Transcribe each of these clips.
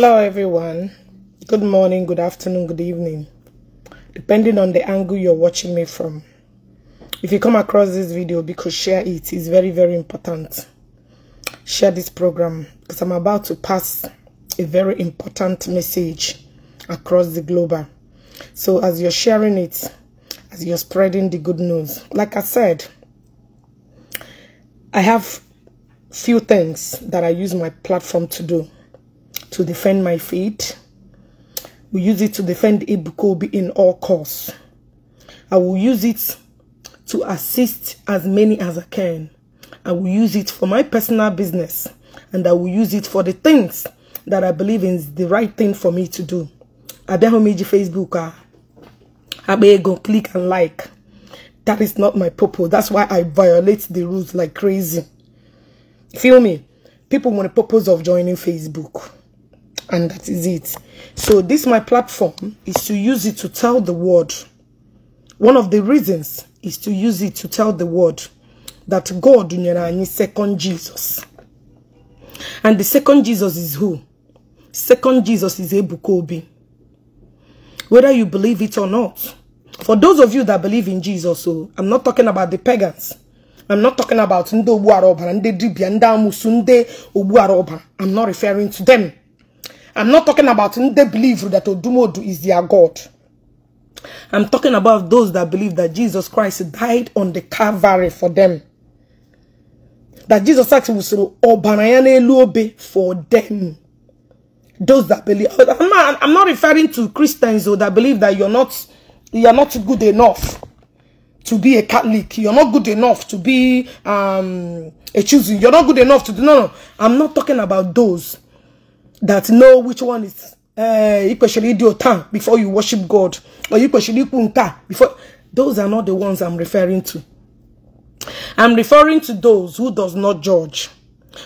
Hello everyone. Good morning, good afternoon, good evening, depending on the angle you're watching me from. If you come across this video, because share it is very, very important. Share this program because I'm about to pass a very important message across the globe. So as you're sharing it, as you're spreading the good news, like I said, I have few things that I use my platform to do to defend my faith. We use it to defend Ibukobi in all cause. I will use it to assist as many as I can. I will use it for my personal business and I will use it for the things that I believe is the right thing for me to do. Abehomiji Facebook, ah. Abego, click and like. That is not my purpose. That's why I violate the rules like crazy. Feel me? People want the purpose of joining Facebook and that is it so this my platform is to use it to tell the world one of the reasons is to use it to tell the world that god is second jesus and the second jesus is who second jesus is ebukobi whether you believe it or not for those of you that believe in jesus so oh, i'm not talking about the pagans I'm not talking about Ndo Buaroba, Nde Dibia, Nda Musu, I'm not referring to them. I'm not talking about they believe that Odumodu is their God. I'm talking about those that believe that Jesus Christ died on the Calvary for them. That Jesus actually was for them. Those that believe. I'm not, I'm not referring to Christians though, that believe that you're not, you're not good enough to be a Catholic. You're not good enough to be um, a choosing. You're not good enough to do. No, no. I'm not talking about those. that know which one is uh, eh, Ikweshiri Diotan before you worship God or Ikweshiri Punka before. Those are not the ones I'm referring to. I'm referring to those who does not judge,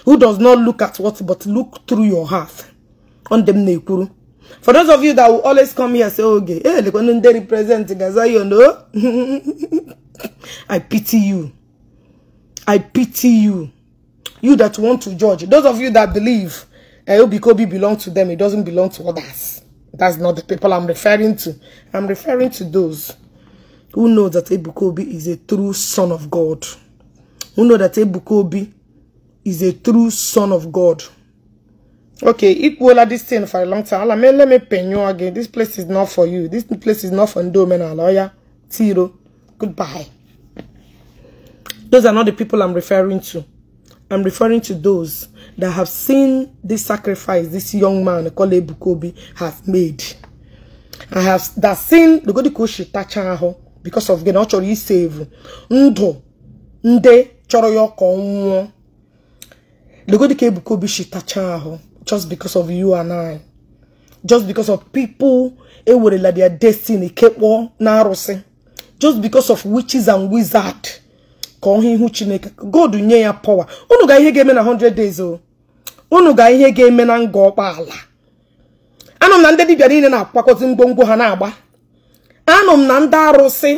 who does not look at what, but look through your heart. On them nekuru. For those of you that will always come here and say, okay, hey, eh, they represent you know. I pity you. I pity you. You that want to judge. Those of you that believe Obi Kobi belongs to them. It doesn't belong to others. That's not the people I'm referring to. I'm referring to those who know that Ebukobi is a true son of God. Who know that Ebukobi is a true son of God. Okay, it will have this thing for a long time. Let me, let me pay you again. This place is not for you. This place is not for and lawyer, Tiro. Goodbye. Those are not the people I'm referring to. I'm referring to those that have seen this sacrifice this young man Kole Ebuka has made I have that seen logodi ka o touch because of gịnị ọ chọrọ isave ndu nde choro ya ka nwuo. nwụọ logodi ka Ebuka Obi just because of you and I just because of people like their destiny kekpọ na arụsị just because of witches and wizards ka ọ hụ ihu chineke god nye ya pọwa unu ga ihe ga-eme na 100 days o unu ga ihe ga-eme na nga ọkpaala anọ m na ndị dibịa niile na-akwakọzi ngwongwo ha na-agba anọ m na ndị arụsị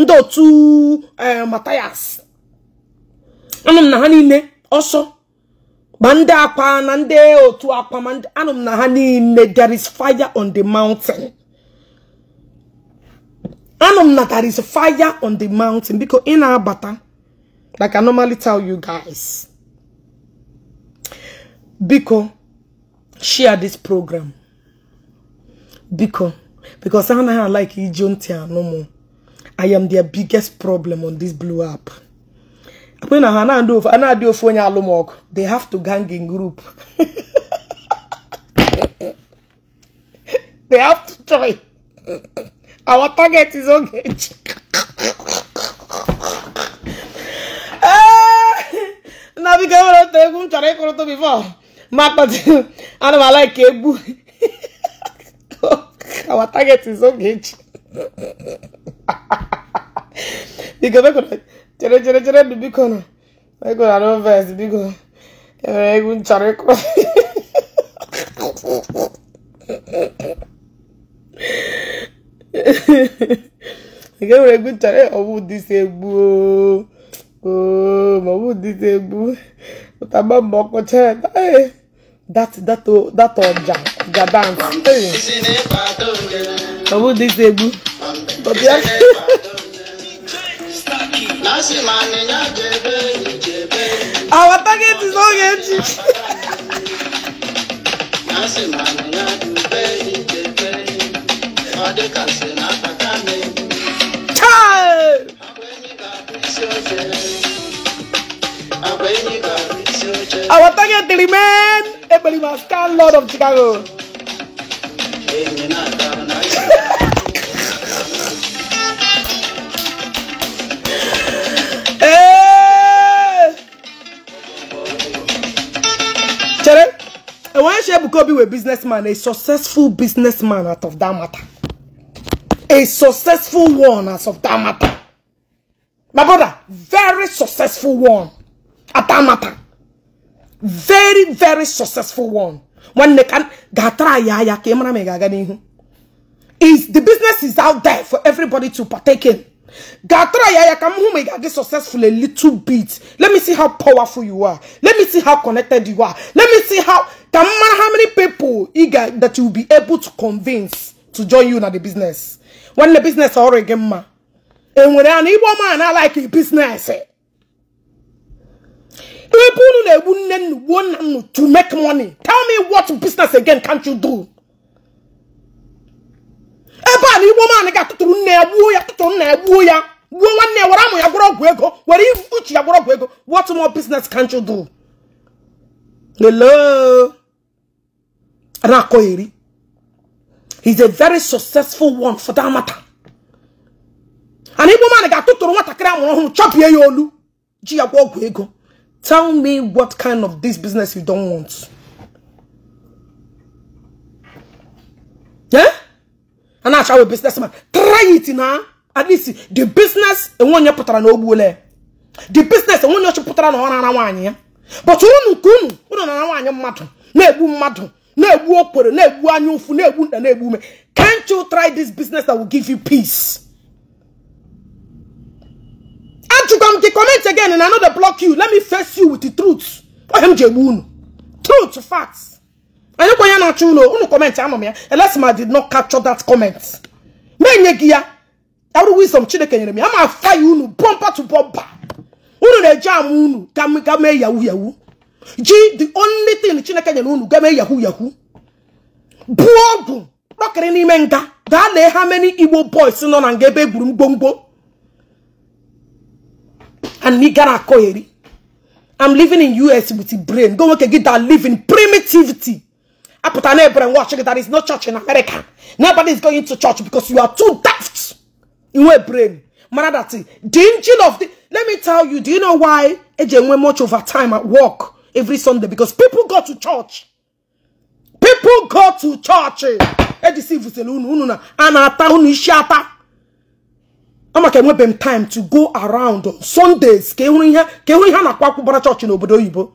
ndị otu eh, matayas anọ m na ha niile ọsọ ma ndị akwa na ndị otu akwa ma anọ m na ha niile there is fire on the mountain anọ m na there is fire on the mountain biko ị na-abata Like I normally tell you guys. Biko, share this program. Biko, because I don't like Ijontia no more. I am their biggest problem on this blue app. When I do phone alumok, they have to gang in group. they have to try. Our target is okay. na biko e nwere otu egwu m chọrọ ịkụrụtụ bifo ma kpati ana m ala ka egbu our target is oge echi chere chere chere ndụ biko na biko na noves biko enwere egwu m chọrọ ịkụrụ nke nwere egwu m chọrọ Oh, Mahmoud Tinubu. But I'm not more concerned. Hey, that that oh, that ọjà ọjà dance. Hey, Mahmoud Tinubu. But yeah. Our target is not getting. Child. Our target the remain Ebony Mascal Lord of Chicago. Eh! Chere, I want to share Bukobi a businessman, a successful businessman out of that matter. A successful one out of that matter. My brother, very successful one. Atamata. Very, very successful one. When they can gatra yaya kemra megaganihu. Is the business is out there for everybody to partake in. Gatra yaya kamu megagi successful a little bit. Let me see how powerful you are. Let me see how connected you are. Let me see how ka matter how many people eager that you be able to convince to join you in the business. When the business already ma. enwere anụ igbo man a like business People who they wouldn't want to make money. Tell me what business again can't you do? Eba ni woman ga tuturu na ebu ya tuturu na ebu ya. Wo wanne wara mu ya goro gwego. Wara ifuchi ya goro gwego. What more business can't you do? Hello. Rakoiri. He's a very successful one for that matter. and igbo man ga-atụtụrụ nwatakịrị amụrụ ọhụrụ chọpịa ya olu ji ya gwa ego tell me what kind of this business you don't want yeah? a na-achawe businessman try it na at least the business enwe onye pụtara na ogbule the business enwe onye ọchụpụtara na ọ na-ara nwaanyị ya but unu nke unu unu na-ara nwaanyị mmadụ na-egbu mmadụ na-egbu okwere na-egbu anya ụfụ na-egbu nda na-egbu ume can't you try this business that will give you peace achịkwa m comment again na another block you let me face you with the truth ohe m ji unu truth facts anyị kwa onye na-achọ ụlọ unu comment anọ m ya elesma did not capture that comment na-enye gị ya arụ wisdom chineke nyere m ya ma fa ya unu bọmpa to bumper. unu na-eji ama unu ga mee yahu yahu ji the only thing chineke nyere unu ga yahu yahu buo ọgwụ kpọkịrị n'ime nga gaa lee ha many igbo boys nọ na nga ebe egburu mgbomgbo and me nigara koyeri. I'm living in US with the brain. Go work get that living primitivity. I put an air and watch it. is no church in America. Nobody is going to church because you are too daft in your brain. Manadati, the engine of the. Let me tell you, do you know why Ejen went much over time at work every Sunday? Because people go to church. People go to church. Edisi vuselunu ununa. Anata unishata. ama ka enwebe m time to go around on Sundays ka ịhụrụ ihe ka ịhụrụ ihe a na-akwa akwụgbara chọọchị n'obodo oyibo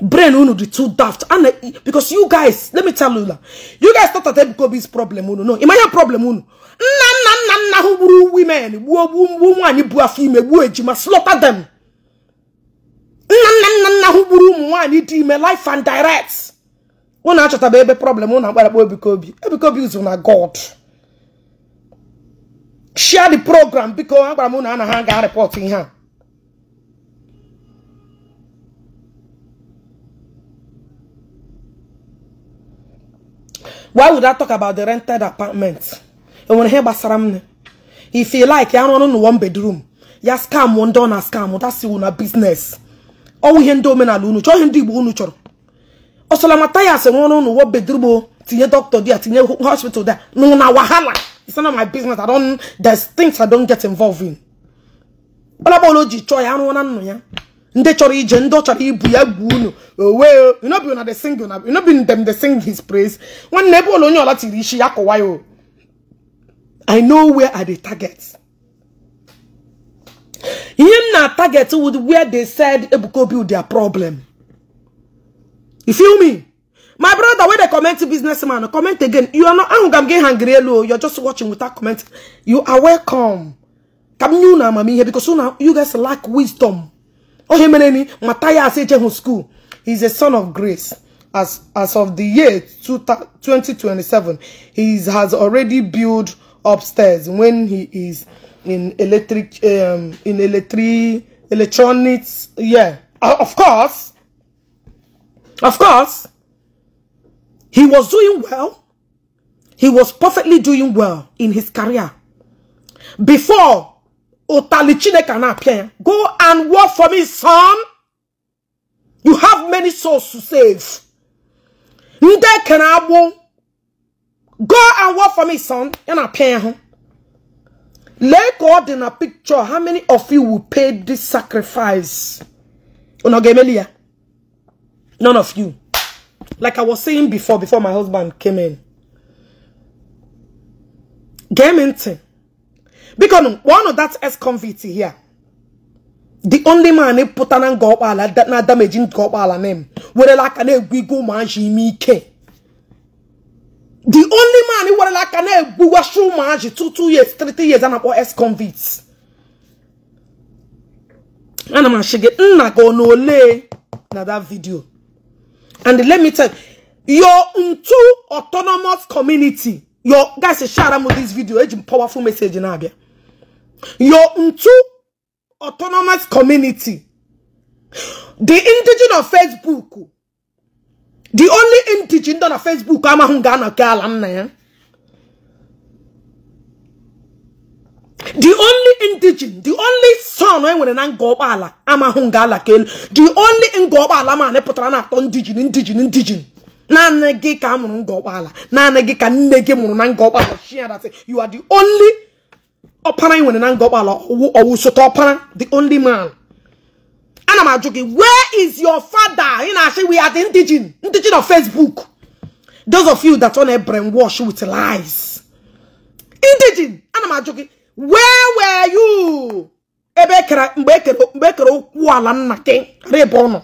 brain unu dị too daft ana because you guys let me tell you that. you guys thought that Ebukobi's problem unu no ịma ihe problem unu nna nna nna nna ahụ gburu women gbuo gbuo nwaanyị bu afọ ime gbuo ejima slaughter them nna nna nna nna ahụ gburu ụmụ nwaanyị dị ime life and direct unu achọtaba ebe problem unu akpọ Ebukobi Ebukobi ụzụ na God share the program biko agwara m na ana ha ga report ihe a why would I talk about the rented apartment enwere ihe gbasara m if you like ya rụrụ n'ụwa bedroom ya scam ndị ọ na scam that's na business ọnwụ ihe ndị omenala unu chọọ ihe ndị Igbo unu chọrọ ọsọlamata ya sị rụrụ n'ụwa bedroom oh, tinye doctor dia tinye hospital dia nụ na wahala It's none of my business. I don't, there's things I don't get involved in. Olabolo ji chọ ya anụ anụ ya. Ndị chọrọ ije, ndị chọrọ ibu ya egwu unu. Owe, you know be una dey sing you know be them dey sing his praise. Nwanne ebe ụlọ onye ọla tiri isi ya kọwa o. I know where are the targets. Ihe m na-target with where they said ebuko build their problem. You feel me? my brother wey they comment businessman comment again you are not angry. you're just watching without comment you are welcome Come m now, mommy here because you guys lack wisdom Oh, My mere is Matthias Ejehu school he is a son of grace as as of the year 2027 he has already built upstairs when he is in electric um in electric electronics yeah uh, of course of course he was doing well. He was perfectly doing well in his career. Before Otalichine can appear, go and work for me, son. You have many souls to save. Nde can Go and work for me, son. And appear. Let God in a picture. How many of you will pay this sacrifice? None of you. like I was saying before, before my husband came in. Game into. Because one of that ex-convict here, the only man they put an go up that not damaging go up name, where like an wiggle man Jimmy K. The only man who like an egg washroom man two two years, three years and ex-convicts. Ana man shige nna go no le na that video. And let me tell you, your Untu autonomous community, your guys, a shout out with this video, it's a powerful message in Abia. Your Untu autonomous community, the indigenous of Facebook, the only indigenous on Facebook, I'm a Hungana Kalamna. the only indigen the only son enwere na nga ụgbọala amahụ nga ala ka elu the only nga ụgbọala ma pụtara na atọ ndijin ndijin ndijin naanị gị ka a mụrụ nga ụgbọala naanị gị ka nne gị mụrụ na nga ụgbọala shiadat you are the only ọpara enwere na nga ụgbọala ọwụ sote ọpara the only man ana m ajụ gị where is your father ị na-asị we are the indigen ndijin of facebook those of you that on a brainwash with lies indigen ana m ajụ gị where were you ebe ekere mgbe ekere mgbe ekere okwu ala nna gị rịba ụnụ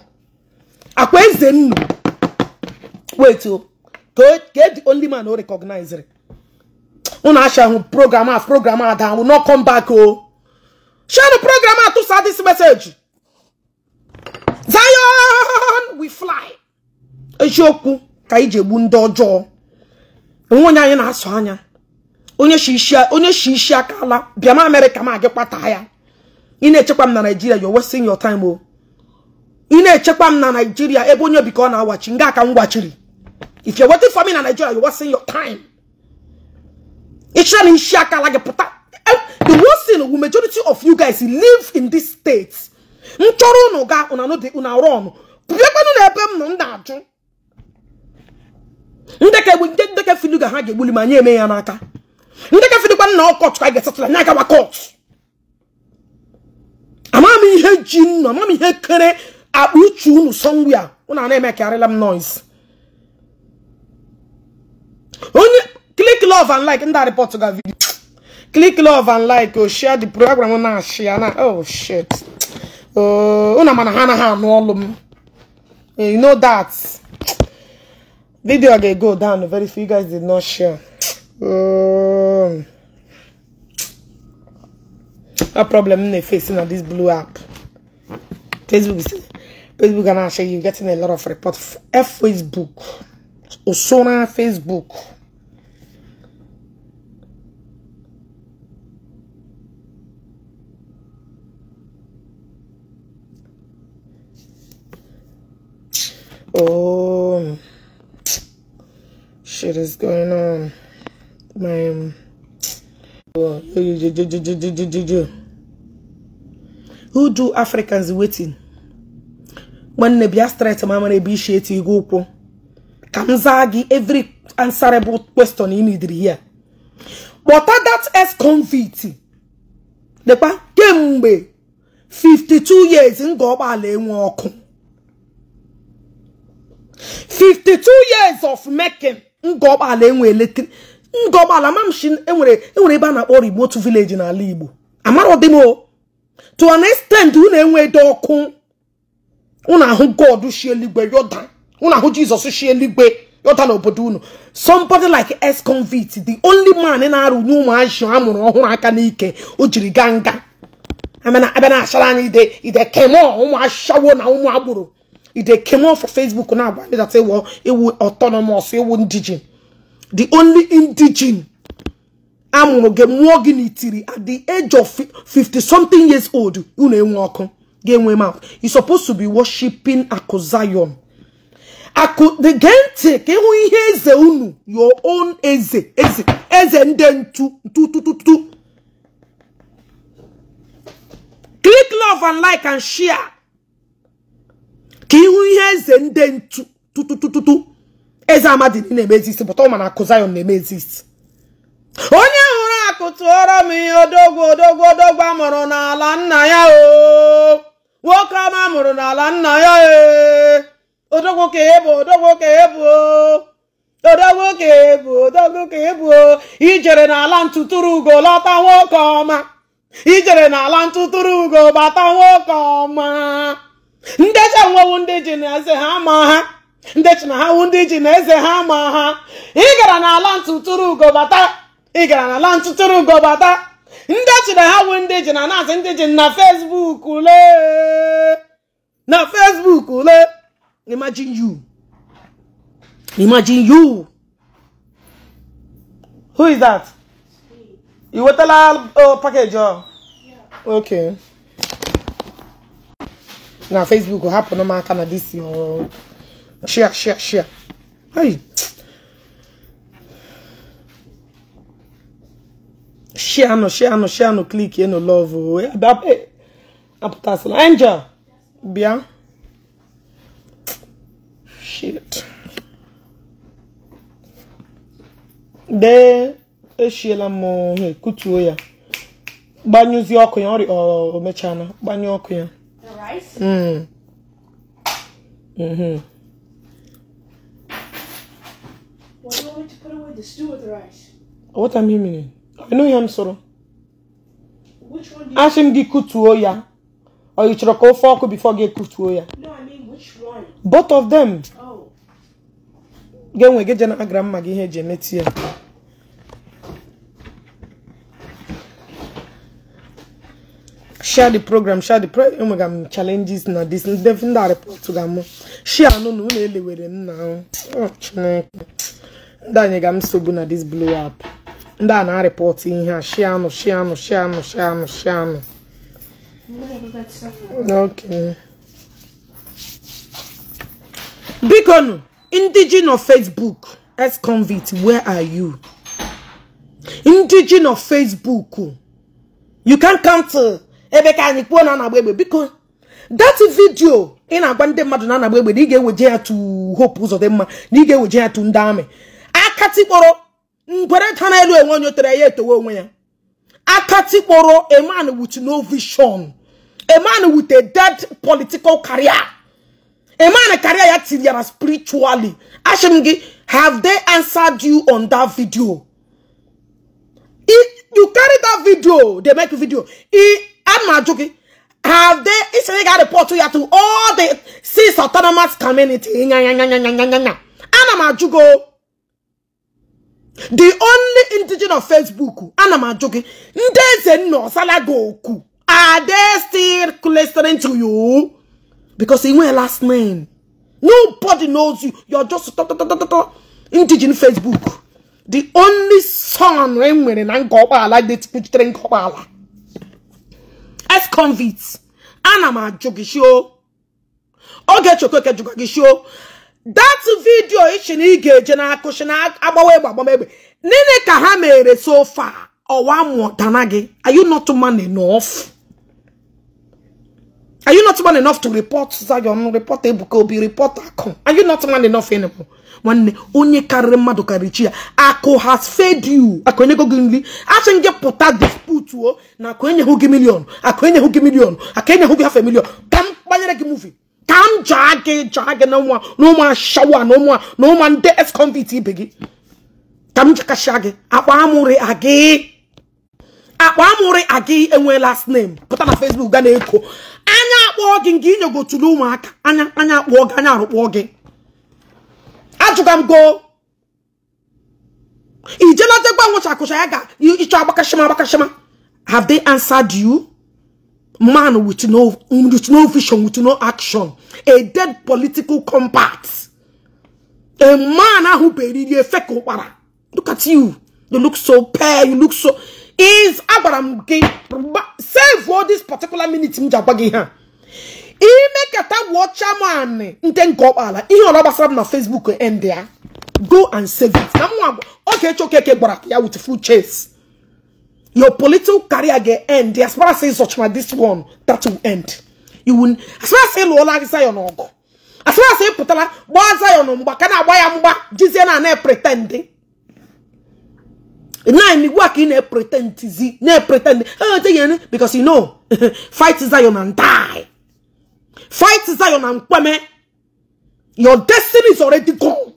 akwa eze nnu wait oh. o ka eji only man o recognize ụnụ asha hụ program a program a daa will not come back o oh. share the program a tụsa this message Zion we fly eziokwu ka iji egbu ndị ọjọọ onwe onye anyị na-asụ anya onye shi isi aka ala bịa ma amerịka ma gị kpata ya ị na-echekwa m na naijiria you're wasting your time o oh. ị na-echekwa m na naijiria ebe onye bikọ na-awachi nga aka m gwachiri if you're waiting for me na naijiria you're wasting your time ịchịra na isi aka ala gị pụta eh, the worst thing wu majority of you guys live in this state m chọrọ unu ga una rọn pụbịakwanụ na ebe m nọ m na-ajụ ndeke bụ ndeke filuga ha ga-egbuli ma nye eme ya n'aka ndị gafedekwa nna ọkọt ka a ga-asatụla anya agawa kọt amama m ihe ji nnu amama m ihe kere akpa uche unu sọngwia una a na-emekarịla m noise onye click love and like ndị report ga video click love and like o oh, share the program na share na oh shit oh, unu mana ha anaghị anụ ọlụ m you know that video ga-go down very few you guys did not share Um, oh. a problem they're facing on this blue app. Facebook is Facebook and actually you're getting a lot of reports. F Facebook. Osona Facebook. Oh, shit is going on. my um, who do africans waiting nwanne bịa straight ishi eti gị ụkwụ ka every answerable question ị nidiri here but that ex convict lekwa kemgbe 52 years nga ụgbọala enwe ọkụ 52 years of making nga ụgbọala enwe ndọbala mamshi enwere enwere ebe a na-akpọ remote village n'ala igbo amara dị o. to an extent unu enwedo ọkụ unu ahụ god shi eluigwe yoda unu ahụ jizọs shi eluigwe obodo unu somebody like ex convict the only man na-arụnye ụmụazị amụrụ ọhụrụ aka n'ike o jiri gaa nga abịa na-achara anyị ide kemo ụmụ ashawo na ụmụ agboro ide kemo for facebook na-agba data ewu autonomous ewu ndijin the only indigene amụrụ mụọ gị n'itiri at the age of 50 something years old unu enwe ọkụ ga-enwe mouth you supposed to be worshiping akụ zion akụ the gee ntị ka ịhụ ihe eze unu your own eze eze eze ndị ntu ntutututu click love and like and share ka ịhụ ihe eze ndị ntu tututututu eze amadi na-eme ezist pụta ụma na akụ Zion na-eme ezist onye hụrụ akụ tụọrọ m ihe odogwu odogwu odogwu amụrụ n'ala nna ya o nwoke ọma mụrụ n'ala nna ya e odogwu ka ebu odogwu ka ebu odogwu ka ebu odogwu ka ebu ijere n'ala ntụtụrụ ugo lọta nwoke ọma ijere n'ala ntụtụrụ ugo bata nwoke ọma ndị ji enwewu ndị ji na eze ha ma ha ndị chi na ha wụ ndị ji na eze ha ma ha ị gara n'ala ntụtụrụ ugo bata ị gara n'ala ntụtụrụ ugo bata ndị chi na ha wụ ndị ji na naasị ndị ji na Facebook ule na Facebook ule imagine you imagine you who is that i wetala package ọ ok na Facebook hapụrụ m aka na dis ọrụ shia shia cher. Aïe. Share no, share no, share no, click no love. Oh. Apụtasịla. bịa. Shit. Dee eshiela m ohe kutuo oh, ya. Gbanyụzie ọkụ ya, ọ mechaa na gbanye ọkụ ya. The rice? Mm. Mm-hmm. The stew or the rice? What am I meaning? I know soro. Which one do you Ask him ya. Or you should call fork before get ya. No, I mean which one? Both of them. Oh. Get when get jana grandma gi he je share the program share the program challenges na this report share no na ụlọ elewere nna ahụ oh, chineke ndị anyị ga m nsogbu na dis blow up ndị a na-arịpọt ihe a sheanụ sheanụ sheanụ sheanụ. shianụ bikonu ndị of nọ facebook s convict where are you ndị of nọ facebook you can count ebe ka anyị kwuo na anagba egbe biko that video ị na-agwa ndị mmadụ na anagba egbe na ị ga-eweje ya to hope ụzọ dị mma na ị ga-eweje ya tu ndị amị akatikporo ngwere tana elu enwe onye otere ya etowe onwe ya akatikporo a man with no vision a man with a dead political career a man career ya tiriara spiritually asị gi gị have they answered you on that video if you carry that video they make video i ana ajụ gị have they isonye ga report ya to all the six autonomous community ana m ajụ the only indigenous of facebook ana m ajụ gị ndị eze nna are they still listening to you because ị nwee last name nobody knows you you're just indigenous facebook the only son e nwere na nke ụgbọala detipuchitere nke ụgbọala ex convict ana m ajụ gị shio oge chekwa eke jụkwa gị shio that vidio ichi na ị ga-eje n'akụchi na agbawa egbe agbamegbe nne ka ha mere so far ọwa mụtana gị are you not man enough are you not man enough to report Zion report Ebuka Obi report Akụ are you not man enough anymore nwanne onye karịrị mmadụ karịrị chi ya akụ has fed you akụ enyego gị nri asị gị pụta disputuo na akụ enyeghụ gị milion akụ enyeghụ gị milion akụ enyeghụ gị hafe milion ka m gbanyere gị movie. ka m jaa gị jaa gị na ụmụ na ụmụ ashawa na ụmụ na ụmụ ndị ex ibe gị ka m jikasịa gị akpa amụrị agị akpa amụrị agị enwe last name pụta na Facebook ga na-eko anya akpọọ gị nke inyegotulu ụmụaka anya anya akpọọ gị anya arụkpọọ gị ajụga m go ijelata gwa nwụchakụcha ya ga ịchọ agbakashima agbakashima have they answered you man with no, with no vision, with no action, a dead political compact, a man who buried a Look at you. You look so pale. You look so. Is Abraham save for this particular minute? Mjabagi ha. Ime kata watcha man. Nten go ala. Ihe ola basara na Facebook end there. Go and save it. Na mwa. Okay, choke ke gbara ya with full chase. Your political career get end. As far as such as this one, that will end. You will. As far as say Lola is your uncle. As far as say Putala, what's your number? Can I buy a mumba? Jesus and I pretending. Now in the work in a pretend, ne pretend. Oh, because you know, fight is Zion and die. Fight is Zion and Kwame. Your destiny is already gone.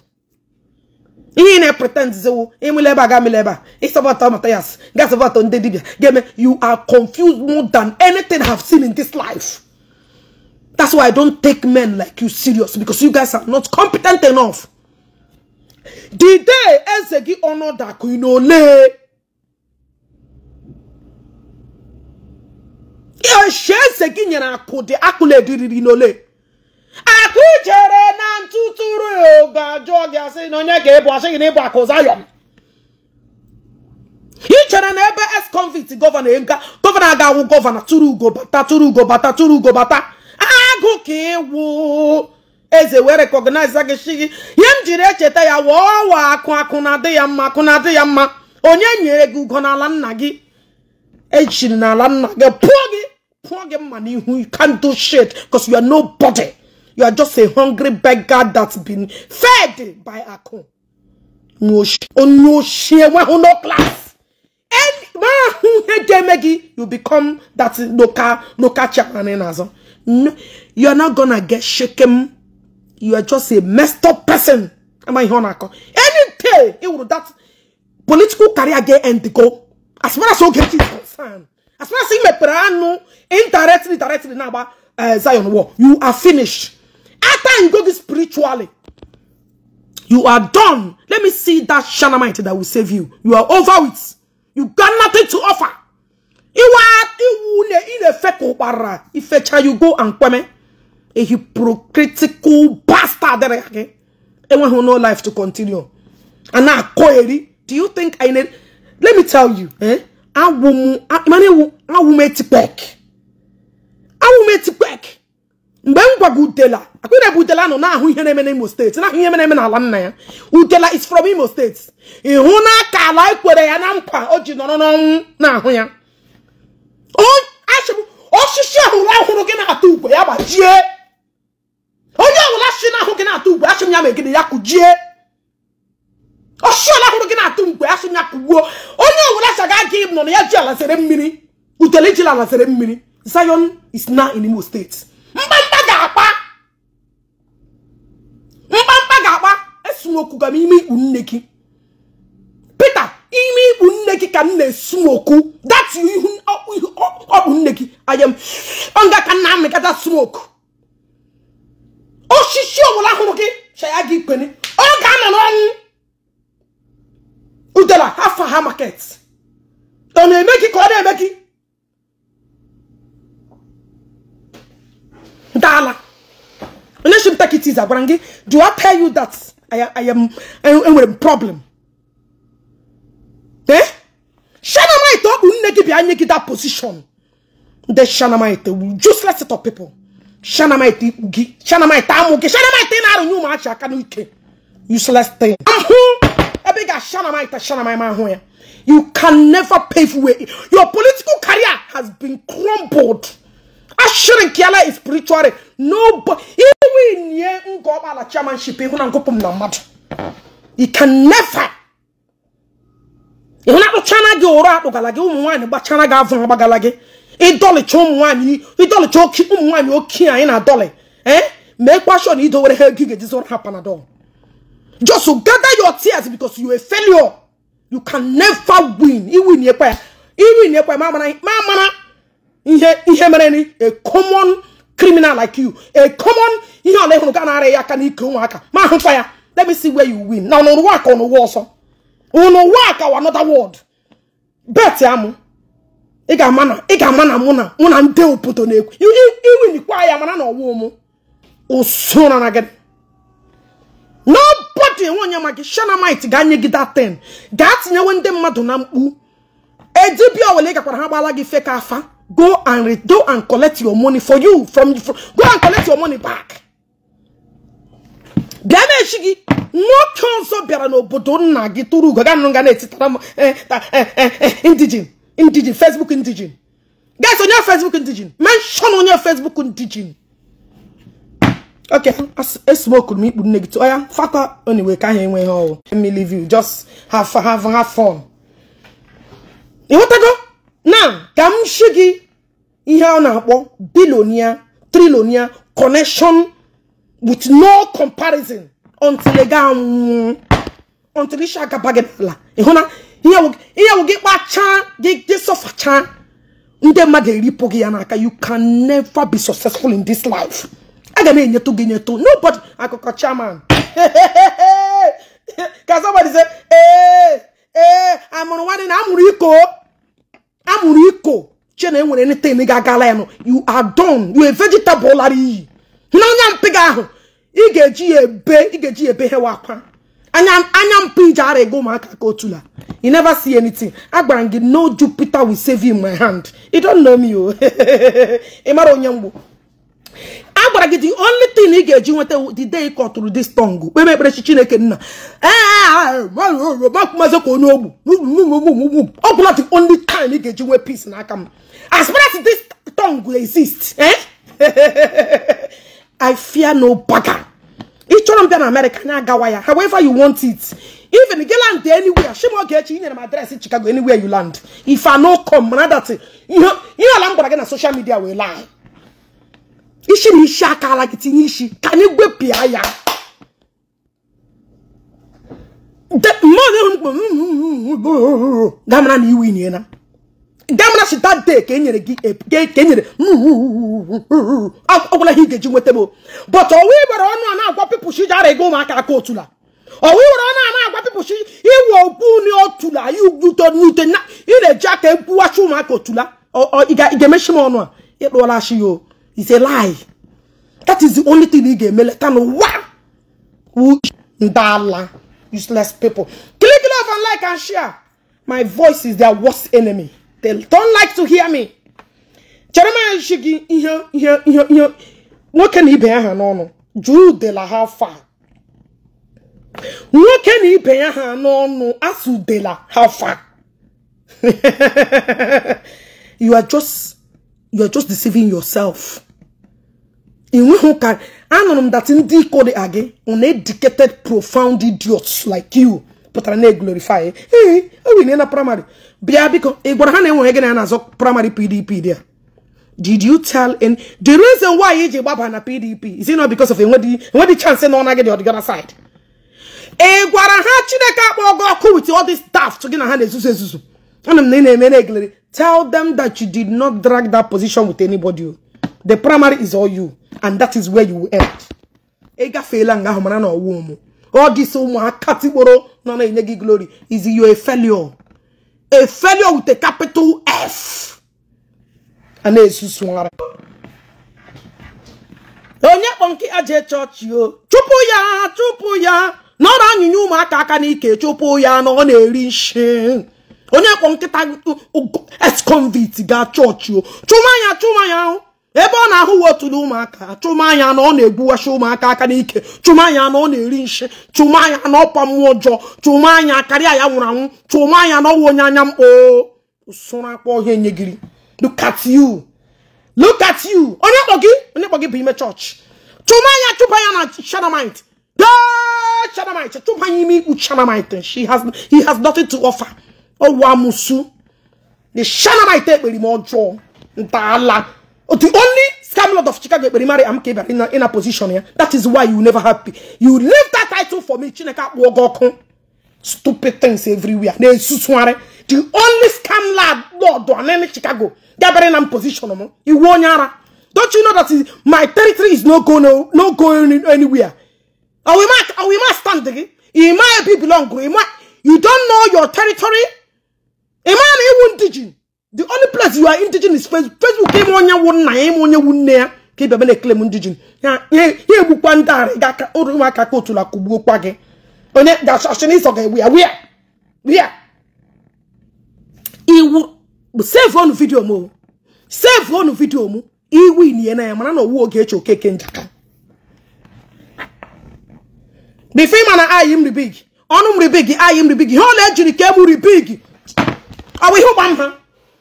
ihe ị na-epretendzizewo emele ebe a ga-emele ebe a ịsọbọta Mathias gasọbọta ndị dibịa ga you are confused more than anything I have seen in this life that's why I don't take men like you serious because you guys are not competent enough the day eze gị ọnọdụ akụ ị n'ole eche eze gị nyere akụ dị akụla ediriri n'ole akụ chere na ntụtụrụ ga-ajụọ gị asị na onye ga-ebu asị gị na ịbụ akụ zayọm ị chere na ebe es convict gọvanọ gọvanọ ga-awụ gọvanọ tụrụ ugo bata tụrụ ugo bata tụrụ ugo bata agụ ka ịwụ eze wee rekọgnaiza gị si gị ihe m jiri echeta ya wụọ akụ akụ na-adị ya mma akụ na-adị ya mma onye nyere gị ugo n'ala nna gị echiri n'ala nna gị pụọ gị pụọ gị mma n'ihu you can't do shit because you You are just a hungry beggar that's been fed by Akon. No class. And you become that local local chairman. No, you are not gonna get shaken. You are just a messed up person. Am I on Akon? Any day it will that political career get end go. As far as Ogechi is concerned, as far as me Imeperano indirectly, directly now about uh, Zion war, you are finished. After you go this spiritually, you are done. Let me see that Shanamite that will save you. You are over it. You got nothing to offer. You Iwa iwune inefe kubara. Ifecha you go and kweme. A hypocritical bastard. There again, Anyone who know life to continue. And now koeri. Do you think I need? Let me tell you. Eh? Awumu. Imani wu. I tipek. Awume tipek. mgbe m gwago utela akụna ebe utela nọ na-ahụ ihe na-eme n'Imo steeti na-ahụ ihe na-eme n'ala nna ya utela is from Imo steeti ịhụ na aka ala ekwere ya na nkwa o ji nọrọ n'ọnwụ na-ahụ ya osisi ọhụrụ ahụrụ gị na-atụ ukwe ya gbajie onye ọbụla si na-ahụ gị na-atụ ukwe asị m ya megide ya kụjie osisi ala ahụrụ gị na-atụ ukwe asị m ya kụgbuo onye ọbụla saga gị nọ na ya ji alasịrị mmiri utele ji alasịrị mmiri Zion is now in Imo steeti mba smoke ka m ime ikpu nne gị Peter ime ikpu nne gị ka m na-esmoku that ihu ọ bụ nne gị ayem nga ka nna amịkata smoku osisi ọbụla hụrụ gị chaya gị ikpene ọ ga ana n'ọnwụ udela afa ha market ọ na-eme gị ka ọ na-eme gị dala relationship take it agwara gị do I tell you that I, I am with a problem eh shanamite ọ bụ nne gị bịa nye that position ndị shanamite wu useless Shana of people shanamite ikpu gị shanamite amụ gị shanamite na-arụnye ụmụachi aka n'ike useless thing ahụ ebe ị ga shanamite shanamite ahụ ya you can never pave way your political career has been crumbled ashirin kiala is spiritually No. win ye Nkọkpala chairmanship ịhụ na ngụpụ m na mmadụ you can never ịhụ na akpụchana gị ụrụ akpụgala gị ụmụ nwaanyị gbachara gị avụ agbagala gị ịdọlịcha ụmụ nwaanyị ịdọlịcha ụmụ nwaanyị oke anyị na-adọlị ee eh? mee kwashọn idowere ha ego ga-eji zụrụ ha panadol just to gather your tears because you a failure you can never win iwin ekwe ya iwin ekwe ma amara ihe ihe mere ni a common criminal like you a common ihe ọla ịhụrụ ga na-arịa ya aka n'ike ụmụaka ma ahụkwa ya let me see where you win na n'ụwa ka n'ụwa ọsọ n'ụwa aka wa another world bet amụ ị ga-ama na ị ga na mụ na mụ na ndị obodo na-ekwu iwinikwa ya mana na ọwụ mụ usoro na gị nobody enwe onye ma gị shanamite ga-anye gị that ten gaa tinyewe ndị mmadụ na mkpu edibia owele gakwara ha gbala gị feka afa go and go and collect your money for you from, from go and collect your money back bịa na no gị nwoke ọzọ bịara n'obodo nna gị tụrụ ugo ga nga na-etitara eh indijin eh, eh, eh, indijin facebook indijin guys onye facebook indijin menshon onye facebook indijin okay esmoke m ikpu nne gị tụọ ya fakwa oniwe ka ha enweghị ọwụ me leave you just have have have fun ịghọtago now ka m shi gị ihe a na-akpọ bilonia trilonia connection with no comparison until ị gaa nwụọ until ị shagaba gị n'ala ịhụ na ihe wụ gị kpachaa gị gị sọfachaa ndị mmadụ eripụ gị ya n'aka you can never be successful in this life aga m enyetụ gị nyetụ nobody akụkọ chairman ka somebody say ee ee amụrụ nwanne na amụrụ iko amụrụ iko na enwere anything ga-agala you are done you are vegetable lara iyi n'anya anya gị ahụ ị ga-eji ya ebe ị ga-eji ya ebe hewa akwa anya mpị ji ara ego ụmụaka ka otula you never see anything agwara m gị no Jupiter will save you in my hand you don't know me o oh. ị mara onye mgbu gwara gị the only thing ị ga-eji nweta the day kọtụrụ this tongue kpebe ekpere chi chineke nna mazi ka onye ogbu ọ bụla the only time ị ga-eji nwee peace n'aka m as far as this tongue exist eh? I fear no bagger ị chọrọ m bịa na America anya agawa ya however you want it even gị land anywhere oge echi nyere m adreesị Chicago anywhere you land if I no come na ihe ala m gwara gị na social media wee lie isi na isi akala gị tinye isi ka anyị gwepịa ya damara na iwu inyela damara si that day ka enyere gị ka enyere ọgwụla ihe ị ga-eji nweta m but ọwa iwere ọnụ a na-agwa pipụl shi ji ara ego ụmụaka aka otula ọwa iwere ọnụ a na-agwa pipụl shi iwe okwu ni otula ute n'ute ị na-eji aka ekwuwachi ụmụaka otula ị ga-emechi m ọnụ a ịkpụọla shi ya o It's a lie. That is the only thing he gave me. Letano, wow! Ndala. Useless people. Click love and like and share. My voice is their worst enemy. They don't like to hear me. Jeremiah Shigi, ihe, ihe, ihe, ihe. Nwoke na ibe ya ha No Drew de la What can he ibe ya no. n'ọnụ. Asu de la Hafa. you are just, you are just deceiving yourself. hụ ka anụrụ m that ndị iko dị agị uneducated profound idiots like you pụtara na-eglorify ee owinye na praịmarị bịa biko ị gwara ha na enweghị gị na ya na-azọ praịmarị pdp dị did you tell in the reason why iji gbaba na pdp is it not because of enwedị chance na ọna gị dị the side ị gwara ha chineke akpọ gị ọkụ wit all this daft gị na ha na-ezuzu ezuzu ana m na ị na-eme na eglere tell them that you did not drag that position with anybody the primary is all you and that is where you will end ịgafeela nga ahụ mara na ọwụ ụmụ ọ dịsa ụmụaka tikporo nọ na-enye gị glory is you a failure a failure with a capital F a na-esusugharị onye kpọnki aje chọọchị o chụpụ ya chụpụ ya nọrọ anyịnya ụmụaka aka n'ike chụpụ ya na ọ na-eri nshi onye kpọ nkịta ex-convict ga chọọchị o chụma ya chụma ya ahụ ebe ọ na-ahụ wotulu ụmụaka chụmanya na ọ na-egbuwachi ụmụaka aka n'ike chụmanya na ọ na-eri nshi chụmanya na ọ ọkwa mmụọ ọjọọ chụmanya karịa ya nwụrụ anwụ chụmanya na ọwa onye anya mkpo usoro akpa ọhịa enyegiri look at you look at you onye kpọ gị onye kpọ gị bụ ime chọọchị chụmanya chụpa ya na shanamite shanamite chụpa ya ime ikpu shanamite she has he has nothing to offer ọwa musu the shanamite ekpere m ọjọọ ntaala Oh, the only scam lord of Chicago Ekperimari Amaka Ebiara in a, in a position here. That is why you never happy. You leave that title for me. Chineka, Wogokon. Stupid things everywhere. The only scam lad lord on any Chicago. Gabriel in position. You won yara. Don't you know that is, my territory is not going no, no going anywhere? Are we must, Are we not standing? It might be belong. You don't know your territory. Imam, it won't teach you. the only place you are is facebook facebook onye wu nna ya ịme onye wu nne ya ka ị bịa na eklem ndigen ya egbukwa ndị arị gị aka ụrụ ụmụaka ka otula kụgbuokwa gị onye gachashin ịsọ ga-egbu ya wia iwu save save ọnụ vidio m iwu inye na njaka ịma na ayi ọnụ ayi ọ na-ejiri ọ bụ ihe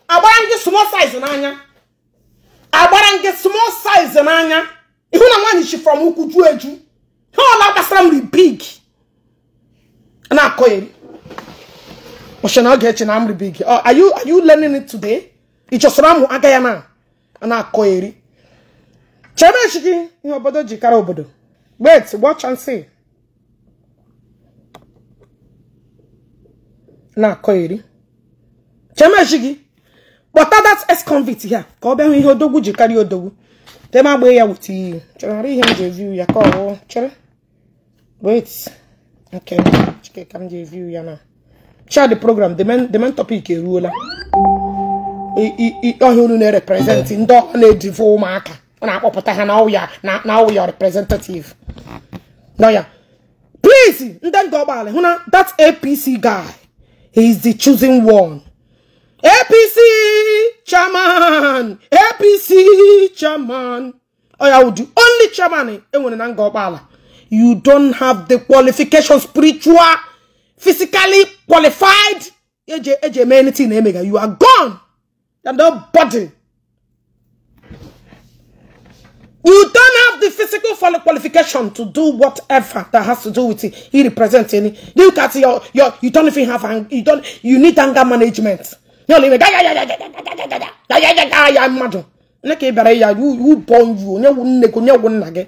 agbara gị small size n'anya agbara gị small size n'anya na nwaanyị chi from ukwu ju eju ha ọla gbasara mri big na-akọ eri. ọchị na oge echi na amri big are you learning it today ịchọsara amụ aga ya na na-akọ eri chebe echi gị ihe obodo ji kara obodo wait watch and see na-akọ eri chebe echi gị kpọta that ex-convict ya ka ọ bịa hụ ihe odogwu ji karịa odogwu tem agba ya weta iyi chọrọ ihe m ji evi ya ka ọ chere wait nke chike ka m ji evi ya na child program the main topic eruola ọhịa unu na-erepresentị ndị ọ na-edivo ụmụaka ọ na-akpọpụta ha na ọya na ọya representative n'ọya please ndị ndị ọgbaala hụ na that apc guy is the choosing one APC chairman APC chairman Oh, would udu only chairman enwere na nga ọgbaala you don't have the qualification spiritual physically qualified Ej, Ej, anything na emega you are gone and nobody you don't have the physical qualification to do whatever that has to do with it he represents any look at your your you don't even have you don't you need anger management na ole ga ga ga ga ga ga ga ga ga ga ya mmadụ ne ka ị ya wu bọ nju onye wu nne gị onye wu nna gị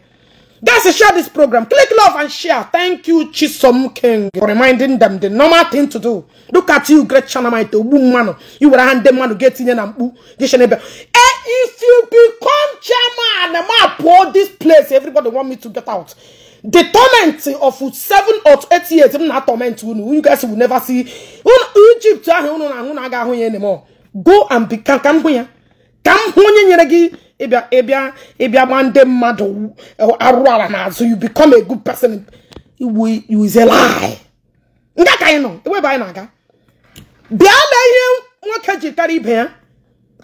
guys share this program click love and share thank you chisom king for reminding them the normal thing to do look at you great chanamite ogbu mmanụ iwere ha ndị mmanụ ga-etinye na mkpu geshenebe if you become chairman ma pụọ this place everybody want me to get out the torment of seven or eight years m na torment unu you guys will never see Egypt ahụ unu na ahụ na aga ahụ ya anymore go and become ka m hụ ya ka m hụ onye nyere gị ịbịa ịbịa ịbịa mmadụ n'azụ you become a good person you is a lie nke ka anyị nọ ewebe anyị na-aga bịa lee ihe nwoke jikara ibe ya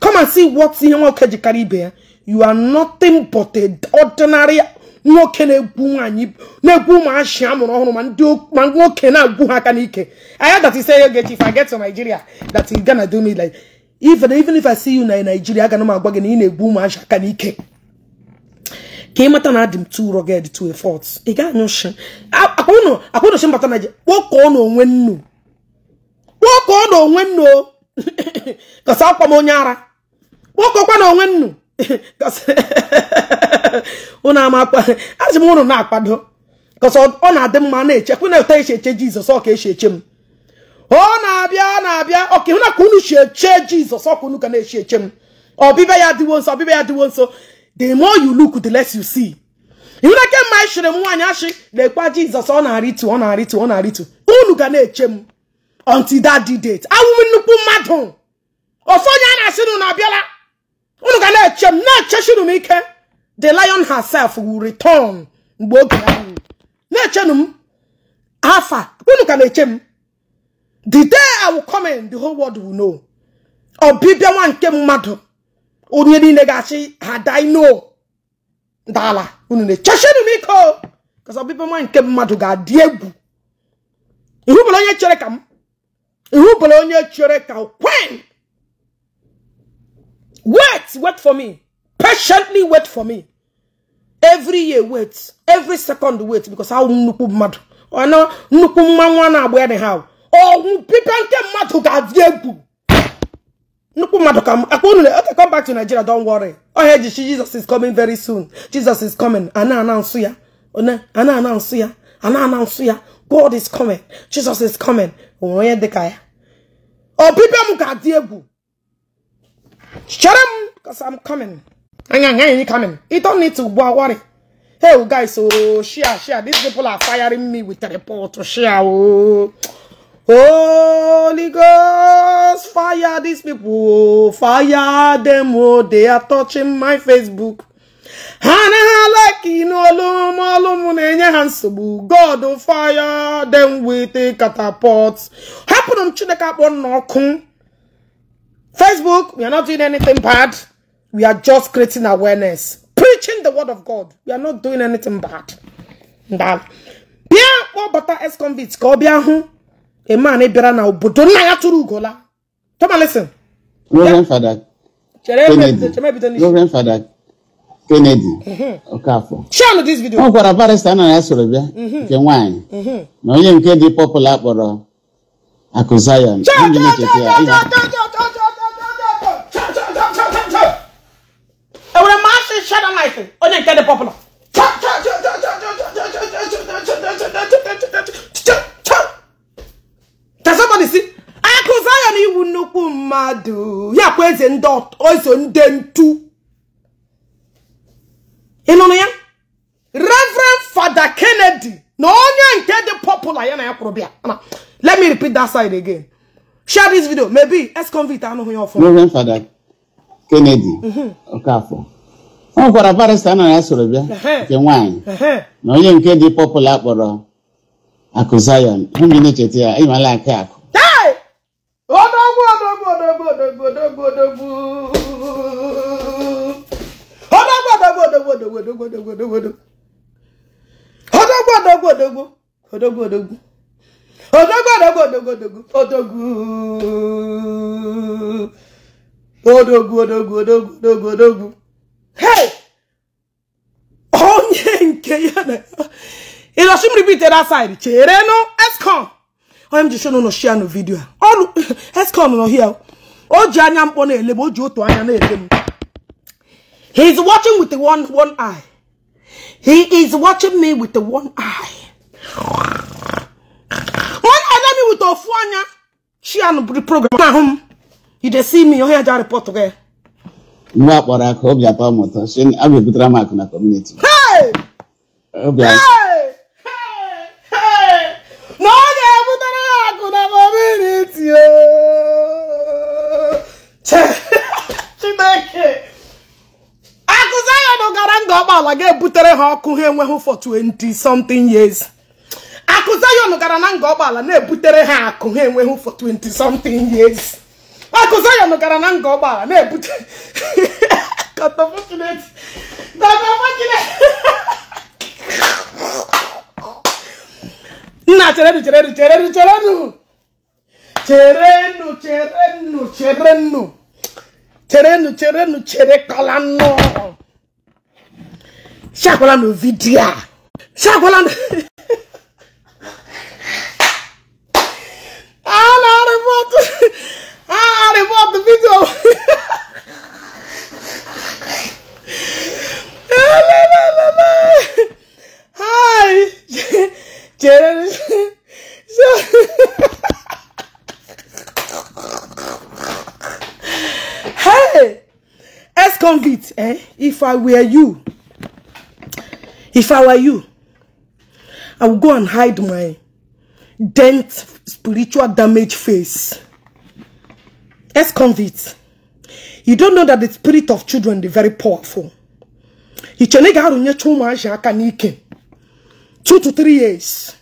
come and see what ihe nwoke jikara ibe ya you are nothing but a ordinary nwoke na-egwu nwaanyị na-egwu achị amụrụ ọhụrụ ma ndị ma nwoke na-agwụ ha aka n'ike Aya dati that he say Ogechi if I get to Nigeria that he do me like even even if I see you na Nigeria aga m agwa gị na ị na-egwu achị aka n'ike ka ị mata na adị m too rugged to a fault ị ga-anyụ akwanụchi mbata Naịjirịa na onwe nnu na onwe nnu kọsa akwa m onye ara na onwe nnu ụnụ amakpa asị m ụnụ na-akwado kọsọ ọ na-adị mma na-echekwa na-eto esi eche jizọs ọ ka esi eche m ọ na-abịa na-abịa ọka ịhụna ka unu si eche jizọs ọ ka unu ka na-echi eche m ọbịbịa ya dịwo nso ọbịbịa ya dịwo nso the more you look the less you see ịhụna kemgbe anyị chịrị m nwaanyị asị. na jizọs ọ na-arịtu ọ na-arịtu ọ na-arịtu unu ga na-eche m until that date awụ nnukwu mmadụ ọsọ onye a na-asị na abịala unu ga na-eche m na-echechinu m ike the lion herself will return mgbe oge ahụ na-echenu m afa unu ka na-eche m the day I will come in the whole world will know ọbịbịa nwa nke mmadụ onye niile ga-achị ha dino dala unu na-echechenu m ike o ọbịbịa nwa nke mmadụ ga-adị egwu bụla onye chere ka m bụla onye chere ka kwen Wait, wait for me. Patiently wait for me. Every year wait. Every second wait because how nnukwu mmadụ. Ọ na nnukwu mma nwa na-agba anyhow. Ọnwụ pipe nke mmadụ ga-adị egwu. Nnukwu mmadụ ka akpa unu okay, come back to Nigeria, don't worry. Oh, hey, Jesus is coming very soon. Jesus is coming. Ana announce ya. Ana announce ya. Ana announce ya. God is coming. Jesus is coming. Oh dịka ya. Ọ pipe m ga-adị Shut up, because I'm coming. I'm coming. You don't need to worry. Hey, oh, guys, oh, share, share. These people are firing me with a report to oh, share. Oh. Holy Ghost, fire these people, fire them, oh, they are touching my Facebook. Hana like in olum olum nenye hansobu. God, oh, fire them with a catapult. Happen on chineka on nokun. Facebook, we are not doing anything bad. We are just creating awareness, preaching the word of God. We are not doing anything bad. bịa kpọbata ex-convict ka ọ bịa hụ eman bịara na obodo nna ya tụrụ ugola tomalisin Reverend Father Kennedy mhm. Okafor ọ gwara barista na ya soro bịa mhm. nke nwaanyị mhm. na onye nke dị pọpụla kpọrọ akụ Zion ewura maa se hyɛ na life onye nke de popular. testimony si akụzi anya na iwu nnukwu mmadụ ya kwa eze reverend Father kennedy popular let me repeat that side again share this video maybe ex-convict anụghị ya ọfụma Kennedy Okafor ọ nwekwara barista na ya soro bịa nke nwanyị na onye nke dị pọpụla kpọrọ akụ Zion onye na-echeta ya ịmala aka akụ odogwu odogwu odogwu odogwu odogwu odogwu odogwu odogwu odogwu odogwu odogwu odogwu odogwu odogwu odogwu odogwu odogwu odogwu odogwu odogwu odogwu hey onye nke ya na ịlọchi m ripite that side chere nụ escon onye m ji shon nọ shia nụ vidio a ọrụ escon nọ hia o ji anya mkpọ na-ele ma o ji otu anya na-ele m he is watching with one one eye he is watching me with one eye one eye me with ofu anya shia nụ program ahụ m you dey see me your head report gị nwa akpọrọ ka obi atọ m ụtọ si a ga-ebutere m akụ na kọmuniti na ọ ga-ebutere ya akụ na kọmuniti chineke akụzi anya na ụgara nga ụgbọala ga-ebutere ha ọkụ ha enweghị for 20 something years akụzi anya na ụgara na nga ụgbọala na-ebutere ha akụ ha enweghị for 20 something years akụzayọn gara na nga ụgbọala na-ebute kọtọfọchịnetị nna cheredu cheredu cheredu cheredu cherenụ cherenụ cherenụ cherenụ cherenụ cherekọlanụ siagwalanụ vidiyo a siagwalanụ a na-arịbọtụ and bought the video. Hi, Jared. hey, ex convict, eh? If I were you, if I were you, I would go and hide my dent spiritual damage face ex-convicts, you don't know that the spirit of children is very powerful. Two to three years,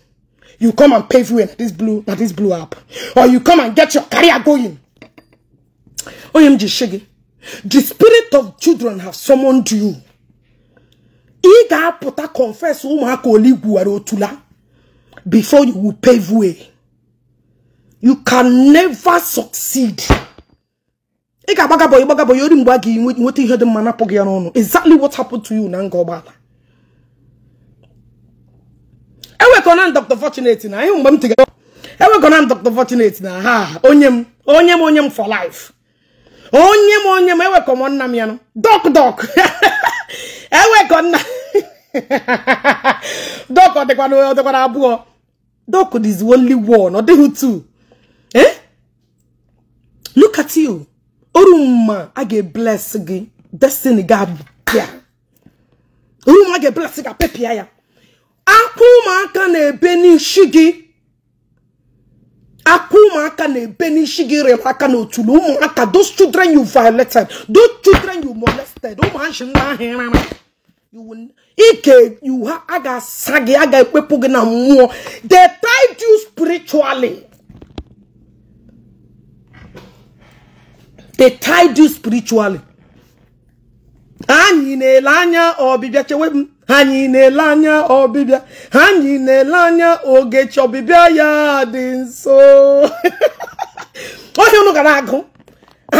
you come and pave way this blue that this blew up, or you come and get your career going. OMG Shiggy, the spirit of children have summoned you. Ị confess before you will pave way. You can never succeed. ị ga-agbagabọ ịgbagabọ ya ori mgbe a ga-enweta ihe dị mma napụ gị ya n'ọnụ exactly what happened to you na nga ọgbala ewekọna m Dr. Fortunate na ihe mgbe m tigara ewekọna m Dr. Fortunate na ha onye m onye m onye m for life onye m onye m ewekọ m nna m ya nụ dok dok ewekọ nna dok ọ dịkwana ọ dịkwana abụọ dok is only one ọ dịghị two eh look at you orumma a ga-ebles gị destiny ga-abịa orumma a ga-ebles gị apịpịa ya aka ụmụaka na-ebe n'isi gị aka ụmụaka na-ebe n'isi gị rịrị aka n'otulu ụmụaka those children you violated those children you molested ụmụachi nwa ahụ ike you ha a ga-asa gị a ga-ekpepụ gị na mmụọ they tied you spiritually they tied you spiritually anyị na-ele anya ọbịbịa chewe m anyị na-ele anya ọbịbịa anyị na-ele anya ogechi ọbịbịa ya dị nso ohia unu gara agụ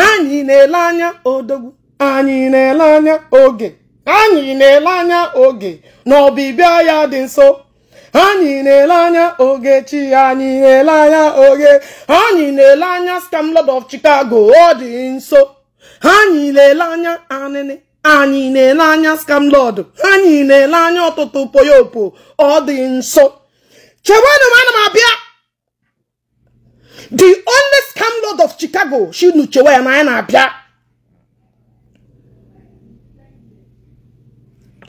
anyị na-ele anya odogwu anyị na-ele anya oge anyị na-ele anya oge na ọbịbịa ya dị nso anyị na-ele anya ogechi anyị na-ele anya oge anyị na-ele anya scam lord of chicago ọ dị nso anyị na-ele anya anịnị anyị na-ele anya scam lord anyị na-ele anya ọtụtụ poyopo ọ dị nso chewenụ m ana m abịa the only scam lord of chicago shinu chewe ya na anyị na-abịa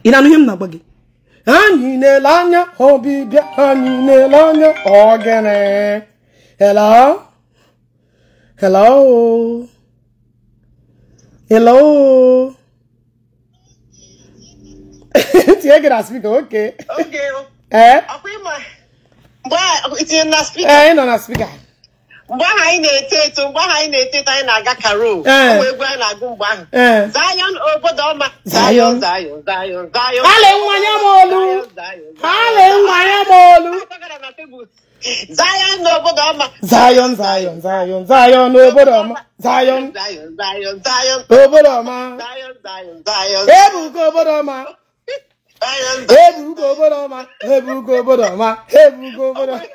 ị na-anụ ihe m na-agba gị anyị na-ele anya ọbịbịa anyị na-ele anya ogene hello hello hello tinye gị na Eh, oke ee eh, ị nọ na spika mgbe ahụ anyị na-eto eto mgbe ahụ anyị na-eto eto anyị na-aga karol ụmụ eh. egwu anyị na-agụ mgbe ahụ eh. zayon obodo ọma zayon zayon zayon zayon hale nwanya m olu hale nwanya m olu zayon n'obodo ọma zayon zayon zayon zayon n'obodo ọma zayon zayon zayon zayon obodo ọma zayon zayon zayon ebuka obodo ọma ebugo obodo ọma ebugo obodo ọma ebugo obodo ọma!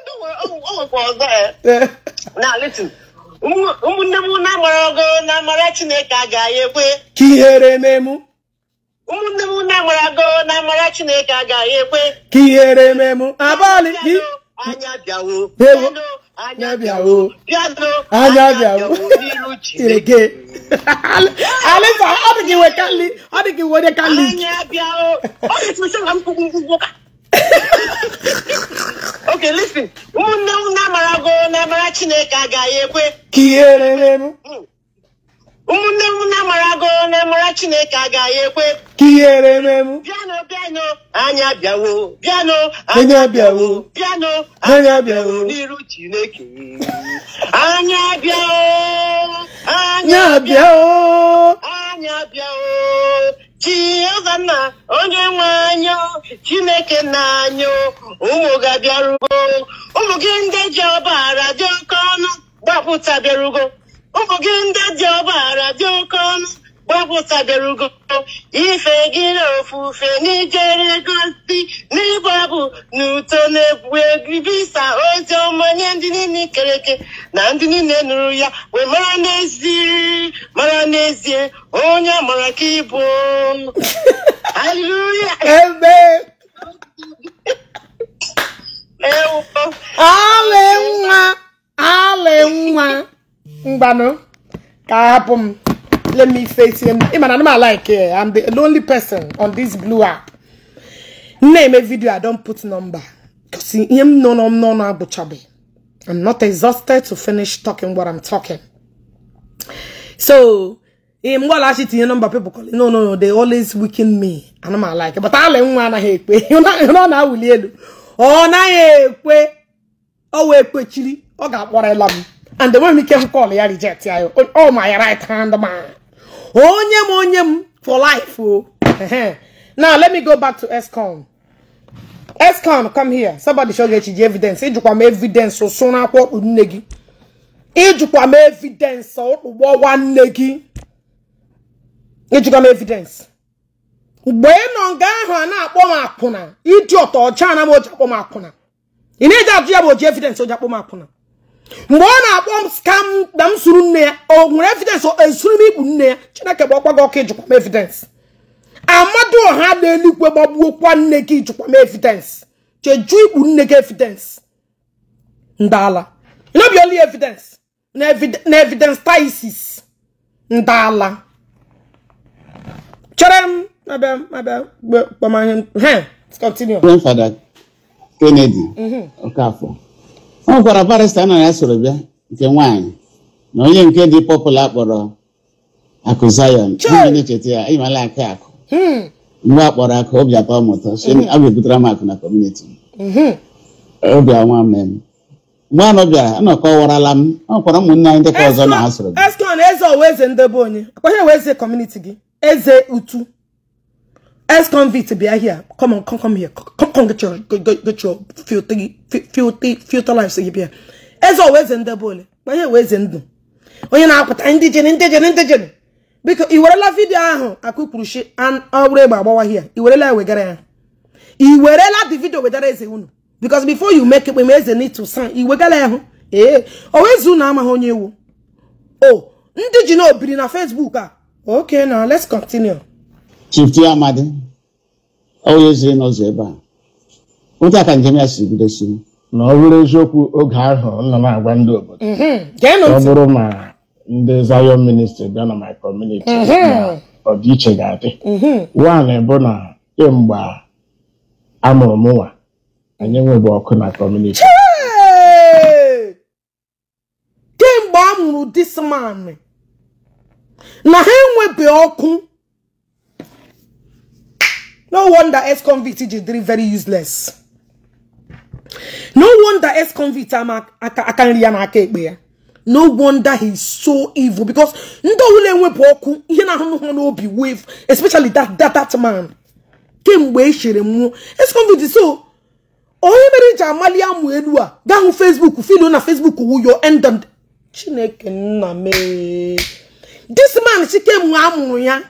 ụmụnne m na-amara ogo na-amara Chineke a ga ekwe ka ihere memu ụmụnne m na-amara ogo na-amara Chineke a ga ekwe ka ihere memu abalị anya bịawo anya abịawo anya abịawo ireke alisa ọ dị gị wekalị ọ dị gị wede kalị okay listen ụmụnne m na-amara go na-amara chineke agaghị ekwe ka ihe rere ụmụnne m na-amarago na-amara chineke agaghị ekwe ka ihere ememu bịanụ bịanụ anya bịawo bịanụ anya bịawo bịanụ anya bịawo n'iru chineke anya bịawo anya bịawo anya bịawo chiọzanna onye nwe anya chineke na-anyụ ụmụ ga-abịarugo ụmụ gị ndị ji ọbara dị oke ọnụ gbapụta bịarugo ụmụ gị ndị dị ọgbaghara dị oke ọnụ gbapụtabere ugo ife gị na ofufe n'ijere gosi n'ịgbabụ n'uto na-egwu ozi ọma nye ndị niile kere eke na ndị niile nụrụ ya wee mara n'ezie mara n'ezie onye amara ka ịbụ haleluya mgbanụ ka hapụ m let me face him ịma na anụmanụ like am eh, the lonely person on this blue app na-eme video I don put number because ihe m nọ n'ọnụ agbụchabeghị I'm not exhausted to finish talking what I'm talking so ihe mgbala chitinye nọmba people call no no no they always weaken me anụmanụ like but ala nwa anaghị ekwe ọ na-awụli elu ọ naghị ekwe ọ wee kwechiri ọ ga ịla m and the m ike m kọl ya reject ya all oh, oh, my right hand man onye oh, m onye m for life o uh-huh. now let me go back to escom escom come here somebody show gị ji evidence ịjụkwa m evidence ụsụ n'akwọ ọkpụ nne gị ịjụkwa m evidence ụkpụgbọ nne gị ịjụkwa m evidence mgbe ị nọ nga ahụ a na-akpọ m akwụna ịdị ọtọ ọcha na m oji akwụna ị na-eji evidence oji akpọ akwụna mgbe ọ na-akpọ m skam na m suru nne ya o nwere evidensị esuru m igbu nne ya chineke bụ ọkwa gị ọka ijikwa m evidence amadu ọha na-eluigwe gbagbuokwa nne gị ijikwa m evidence cheju ikpu nne gị evidence ndala nobi only evidence na evidence taisis ndala chere m abịa abịa kpamahe he continue grandfather kennedy mm-hmm. okafọ ọ nwekwara barịsta na ya soro bịa nke nwaanyị na onye nke dị pọpụla kpọrọ akụ zayon ndị na-echeta ya ịmala akụ akụ hmm. mgbe a kpọrọ akụ obi atọ mụta hmm. a ga-ebutara m akụ na kọmuniti hmm. obi ọnwa mee m mgbe anọ bịara anọkọwarala m ọ nwekwara ụmụnne anyị dịka ọzọ na ha soro bịa ex-convict bịa here come come come here come come get your get your filthy filthy life bịa eze ọwa eze ndị bụ ole ma eze ndụ onye na akpata ndị jere ndị jere ndị jere biko i werela vidio ahụ egbe agbawa hia i werela wegara ya i the video uh-huh. eze unu because before you make ekpeme eze need to sign were hụ ee unu amaghị onye ewu o ndị ji na Facebook a uh-huh. okay now let's continue Chief Amadi onye ziri n'ụzọ ebe a otu a ka njem ya si bidosi na ọ bụrụ eziokwu oge ahụ nọ na-agwa ndị obodo mm-hmm. ọ bụrụ ma ndị Zion ministry bịa na my community mm-hmm. ọdịiche ga-adị mm-hmm. nwanyị bụ na kemgbe amụrụ m nwa anyị enweghị ọkụ na community kemgbe a mụrụ this na ha enwebeghị ọkụ No wonder ex-convict Ijidiri very useless. No wonder ex-convict Akanri ya na aka ekpe ya. No wonder he's so evil because ndo ule enwepụ ọkụ ihe na-ahụ obi wave especially that that man kemgbe e chere mmụọ ex-convict so onye mere ji amali amụ elu a gaa hụ Facebook filu na Facebook your wuyo endon Chineke nna mee this man chike mgbe amụrụ ya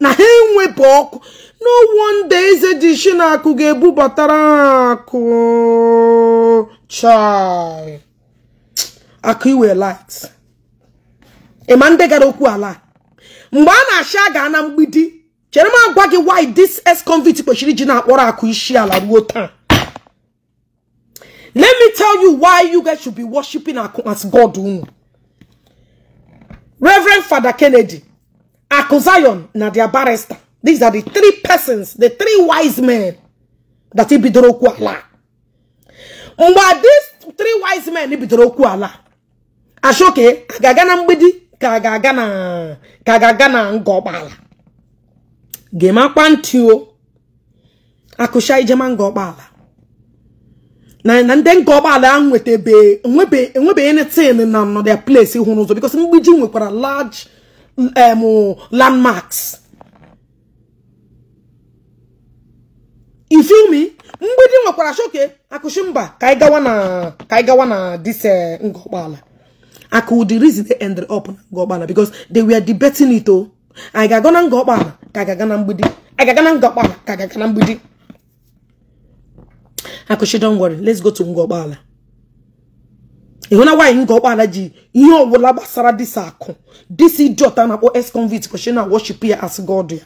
na ha enwepụ ọkụ no wonder eze ji akụ ga-ebubatara ha akụ chai akụ iwe light ịma ndị gara okwu ala mgbe a na-achị ga na mgbidi chere m agwa gị why this ex-convict kwechiri ji na-akpọrọ akụ isi ala ruo taa let me tell you why you guys should be worshiping akụ as god unu reverend fada kennedy Akuzion na dia barrister. These are the three persons, the three wise men that he bidoro okwu ala. Mgbe these three wise men he bidoro okwu ala. Ashoke ka aga na mgbidi ka a ga-aga na ka ga-aga na ngọgbala. Gemakwa ntị o. Akụcha ijema na ndị nke ụgbọala ahụ nwetabe enwebe enwebe na their place hụrụ ụzọ because mgbidi nwekwara large um, landmarks ifilmi mgbidi nwekwara choke akụchi mba ka anyị gawa na ka anyị gawa na this eh, akụ reason they end up ngọgbala because they were debating it o oh. i na ngọgbala ka na mgbidi anyị ga-aga na mgbidi don't let's go to ngọgbala ịhụna nwaanyị nga ọkpara ji ihe ọbụla gbasara disa akụ Disi idiota na-akpọ ex convict kwesịrị na worship ya as god ya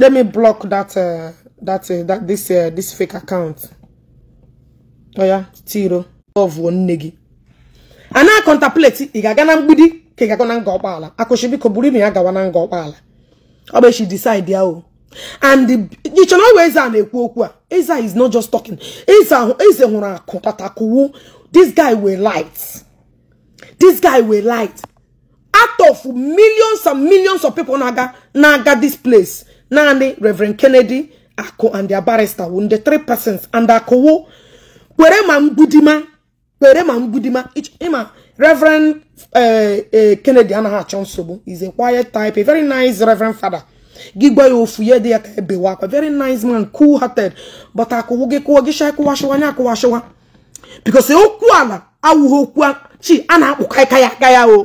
let me block that uh, that uh, that this uh, this fake account oya oh tiro ọvụọ nne gị a na contemplate ị ga-aga na mgbidi ka ị ga-aga na nga ọkpala akụchi biko buru ime ya gawa na nga ọkpala ọ bụ echi decide ya o and ichena ọwa eze a na-ekwu okwu a eze is not just talking eze hụrụ akụ tatakụwu this guy were light this guy were light out of millions and millions of people na-aga na-aga this place naanị reverend kennedy akụ and their barrister wu 3 three persons and akụwu kwere ma mgbudima kwere ma mgbudima ịma reverend eh, eh, kennedy anaghị achọ is a quiet type a very nice reverend father gị gba ya ofu ya dị ya ka ebewa akwa very nice man cool hearted but akụwụ gị kụọ gị shaa kụwasịwa nya akụwasịwa because e okwu ala awụghị okwu chi a na-akpụ kaịka ya ya o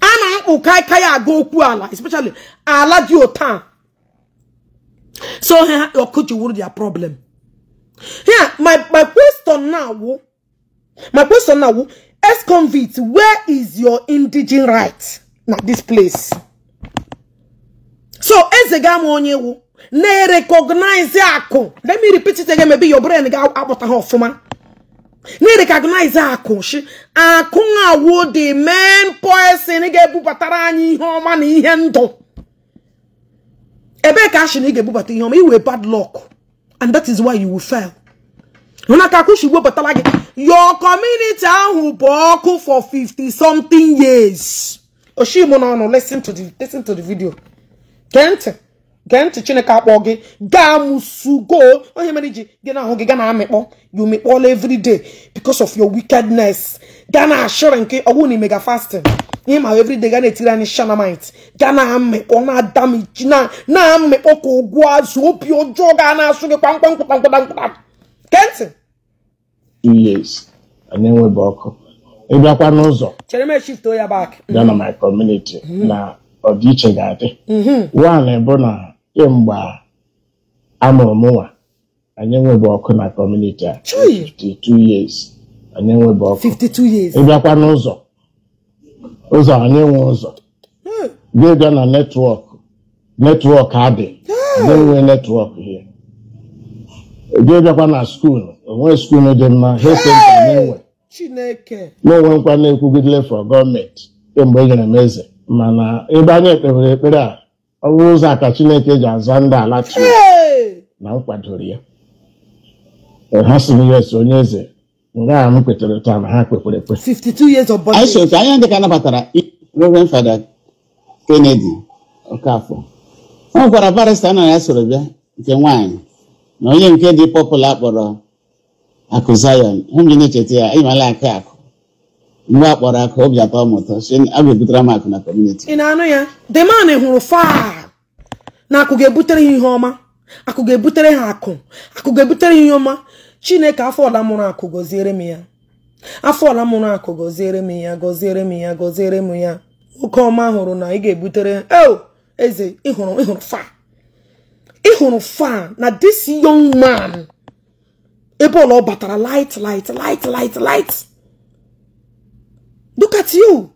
a na-akpụ kaịka ya aga okwu ala especially ala dị ụta so ha ọkụ ji their problem here my my question now my question now ex convict where is your indigin right na this place so eze ga ama onye wu na-erekọgnaizi akụ let me repeat it again maybe your brain ga-akpọta ha ọfụma na-erekọgnaizi akụ shi akụ awu the main person ga-ebubatara anyị ihe ọma na ihe ndụ ebee ka ashị na ị ga-ebubata ihe ọma iwe bad luck and that is why you will fail akụ akwụshi webatara gị your community ahụ bụ ọkụ for 50 something years oshimụ n'ọnụ listen to the listen to the video gee ntị gee ntị chineke akpọ gị gaa musugo onye mere ji gị na ahụ gị gaa na amịkpọ you mikpọla everyday because of your wickedness gaa na ashịrị nke ọgwụ na imega fasting ihe ma everyday gaa na-etiri anyị shanamite gaa na amịkpọ na adamichi na amịkpọ ka ụgwọ azụ obi ọjọọ gaa na-asụ gị kpamkpam kpamkpam kpamkpam gee ntị years anyị enweghị ọkụ ịbịakwa n'ụzọ chere m eshifto ya bak gaa na my community mm-hmm. na ọdịiche ga-adị one bụ na kemgbe amụrụ m nwa anyị enwebe ọkụ na kọmuniti a 52 years anyị enwebe ọkụ 52 ịbịakwa n'ụzọ ụzọ anyị nwe ụzọ hmm. ga-abịa na netwọk netwọk adị na-enwe hmm. netwọk ya ga-abịakwa na skuulu onwe skuulu dị mma ha hesenta na-enwe na-enwe nkwa na-ekwugidele for gọọmenti kemgbe e nyere m eze mana ebe anyị kpebere ekpere a ọrụ ụzọ a ka chineke ji aza ndị ala chi na m kwadoro ya ha sị m yes onye eze nga a m kwetere taa na ha kwekwere ekpe 52 years of anya dị ka nabatara Reverend Fada Kennedy Okafọ ọ gwara barista na ya soro bịa nke nwaanyị na onye nke dị pọpụla kpọrọ akụ Zion ha m ji na-echeta ya ịmala aka akụ mgbe nwa akpọrọ aka obi atọ m ụtọ si a ga-ebutere m akụ na kọmuniti ị na-anụ ya deman hụrụ faa na akụ ga-ebutere ha ihe ọma akụ ga-ebutere ha akụ akụ ga-ebutere ha ihe ọma chineke afọ ọla mụrụ akụ gọziere m ya afọ ọla mụrụ akụ gọziere m ya gọziere m ya gọziere m ya oke ọma hụrụ na ị ga-ebutere o oh, eze ịhụrụ ịhụrụ faa ịhụrụ faa na this young man ebe ọla ọ batara light light light light light look at you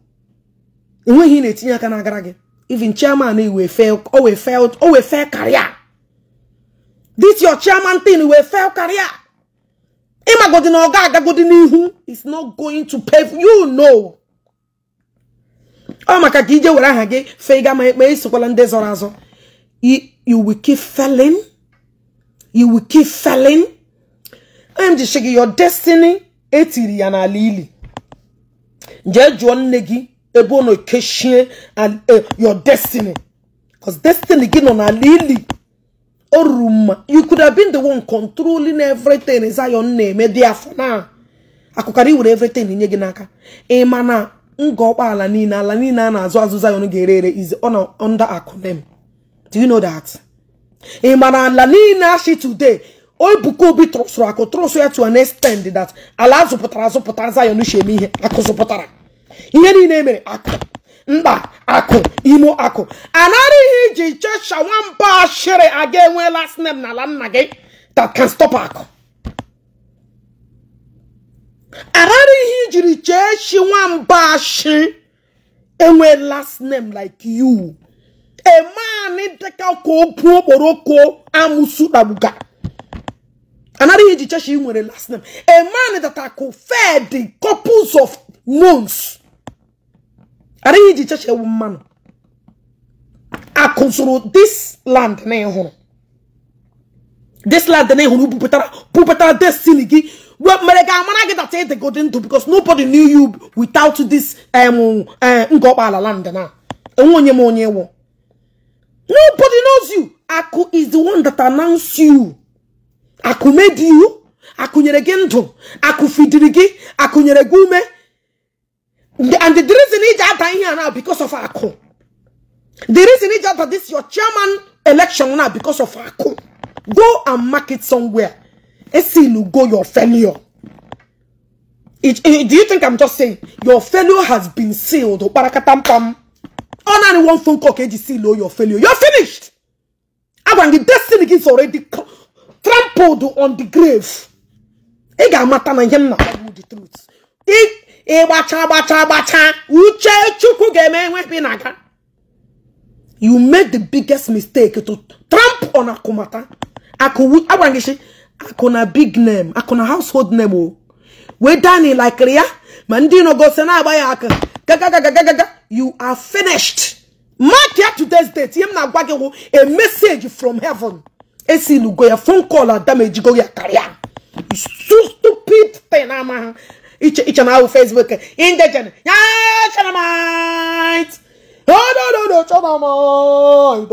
enweghị na-etinye aka n'agara gị even chairman e wee fail o wee fail o wee fail career this your chairman thing e wee fail career ịmagodi na ọ ga-agagodi n'ihu is not going to pay you know ọ maka ka ije were aha gị fega ma ekpe isokwala ndị zọrọ azọ you will keep failing you will keep failing m your destiny etiri ya n'ala ili jee jụọ nne gị ebe ọ na-ekechie eh, your destiny because destiny gị nọ n'ala ili o ruru mma you could have been the one controlling everything Zion na-eme dị afọ na akụkara iwere everything nye gị n'aka ma na nga ọkpa ala niile ala niile a na-azụ azụ Zion ga-ere ere is under akụnem do you know that ịma eh, na ala niile ashi today Ebuka Obi trọsụrụ akụ trọsụ ya to an extent that ala azụpụtara azụpụtara Zion sheme ihe akụ zụpụtara ihe niile emere akụ mba akụ imo akụ ihe iji chesha nwamba ashịrị aga enwe last name na ala nna gị that can stop akụ ihe ijiri cheshi nwamba ashị enwe last name like you a man dịka ka obu okporoko amusu na another age church you were last name a man that I conferred in couples of months another age church a woman I control this land na e this land na ehuru pupetara pupetara destiny gi well mere ga amara gi that they e go into because nobody knew you without this um uh land na enwe onye onye nobody knows you Aku is the one that announced you akumedi ihu akunyere gị ndụ akụfidiri gị akụnyere gị ume and the reason iji ata ihe a na because of akụ the reason iji ata this your chairman election na because of akụ go and mark it somewhere esilu go your failure it, it, do you think i'm just saying your failure has been sealed kparakatampam ọ naanị one phone call ka eji seal your failure you're finished agwa gị destiny gị is already trampled on the grave ị ga-amata na ihe na the truth ịgbacha uche chukwu ga-eme enweghi you made the biggest mistake to tramp on akumata agwara gị si akụna big name akụna household name We wee dani likiri ya ma ndị nọgosi abaya ya aka gagagagagaga you are finished mark today's date ihe na a message from heaven esi esilugo ya phone call adam ejigo ya karịa stupid thing ama iche na ahụ facebook indejen ya chanamit odododo chanamit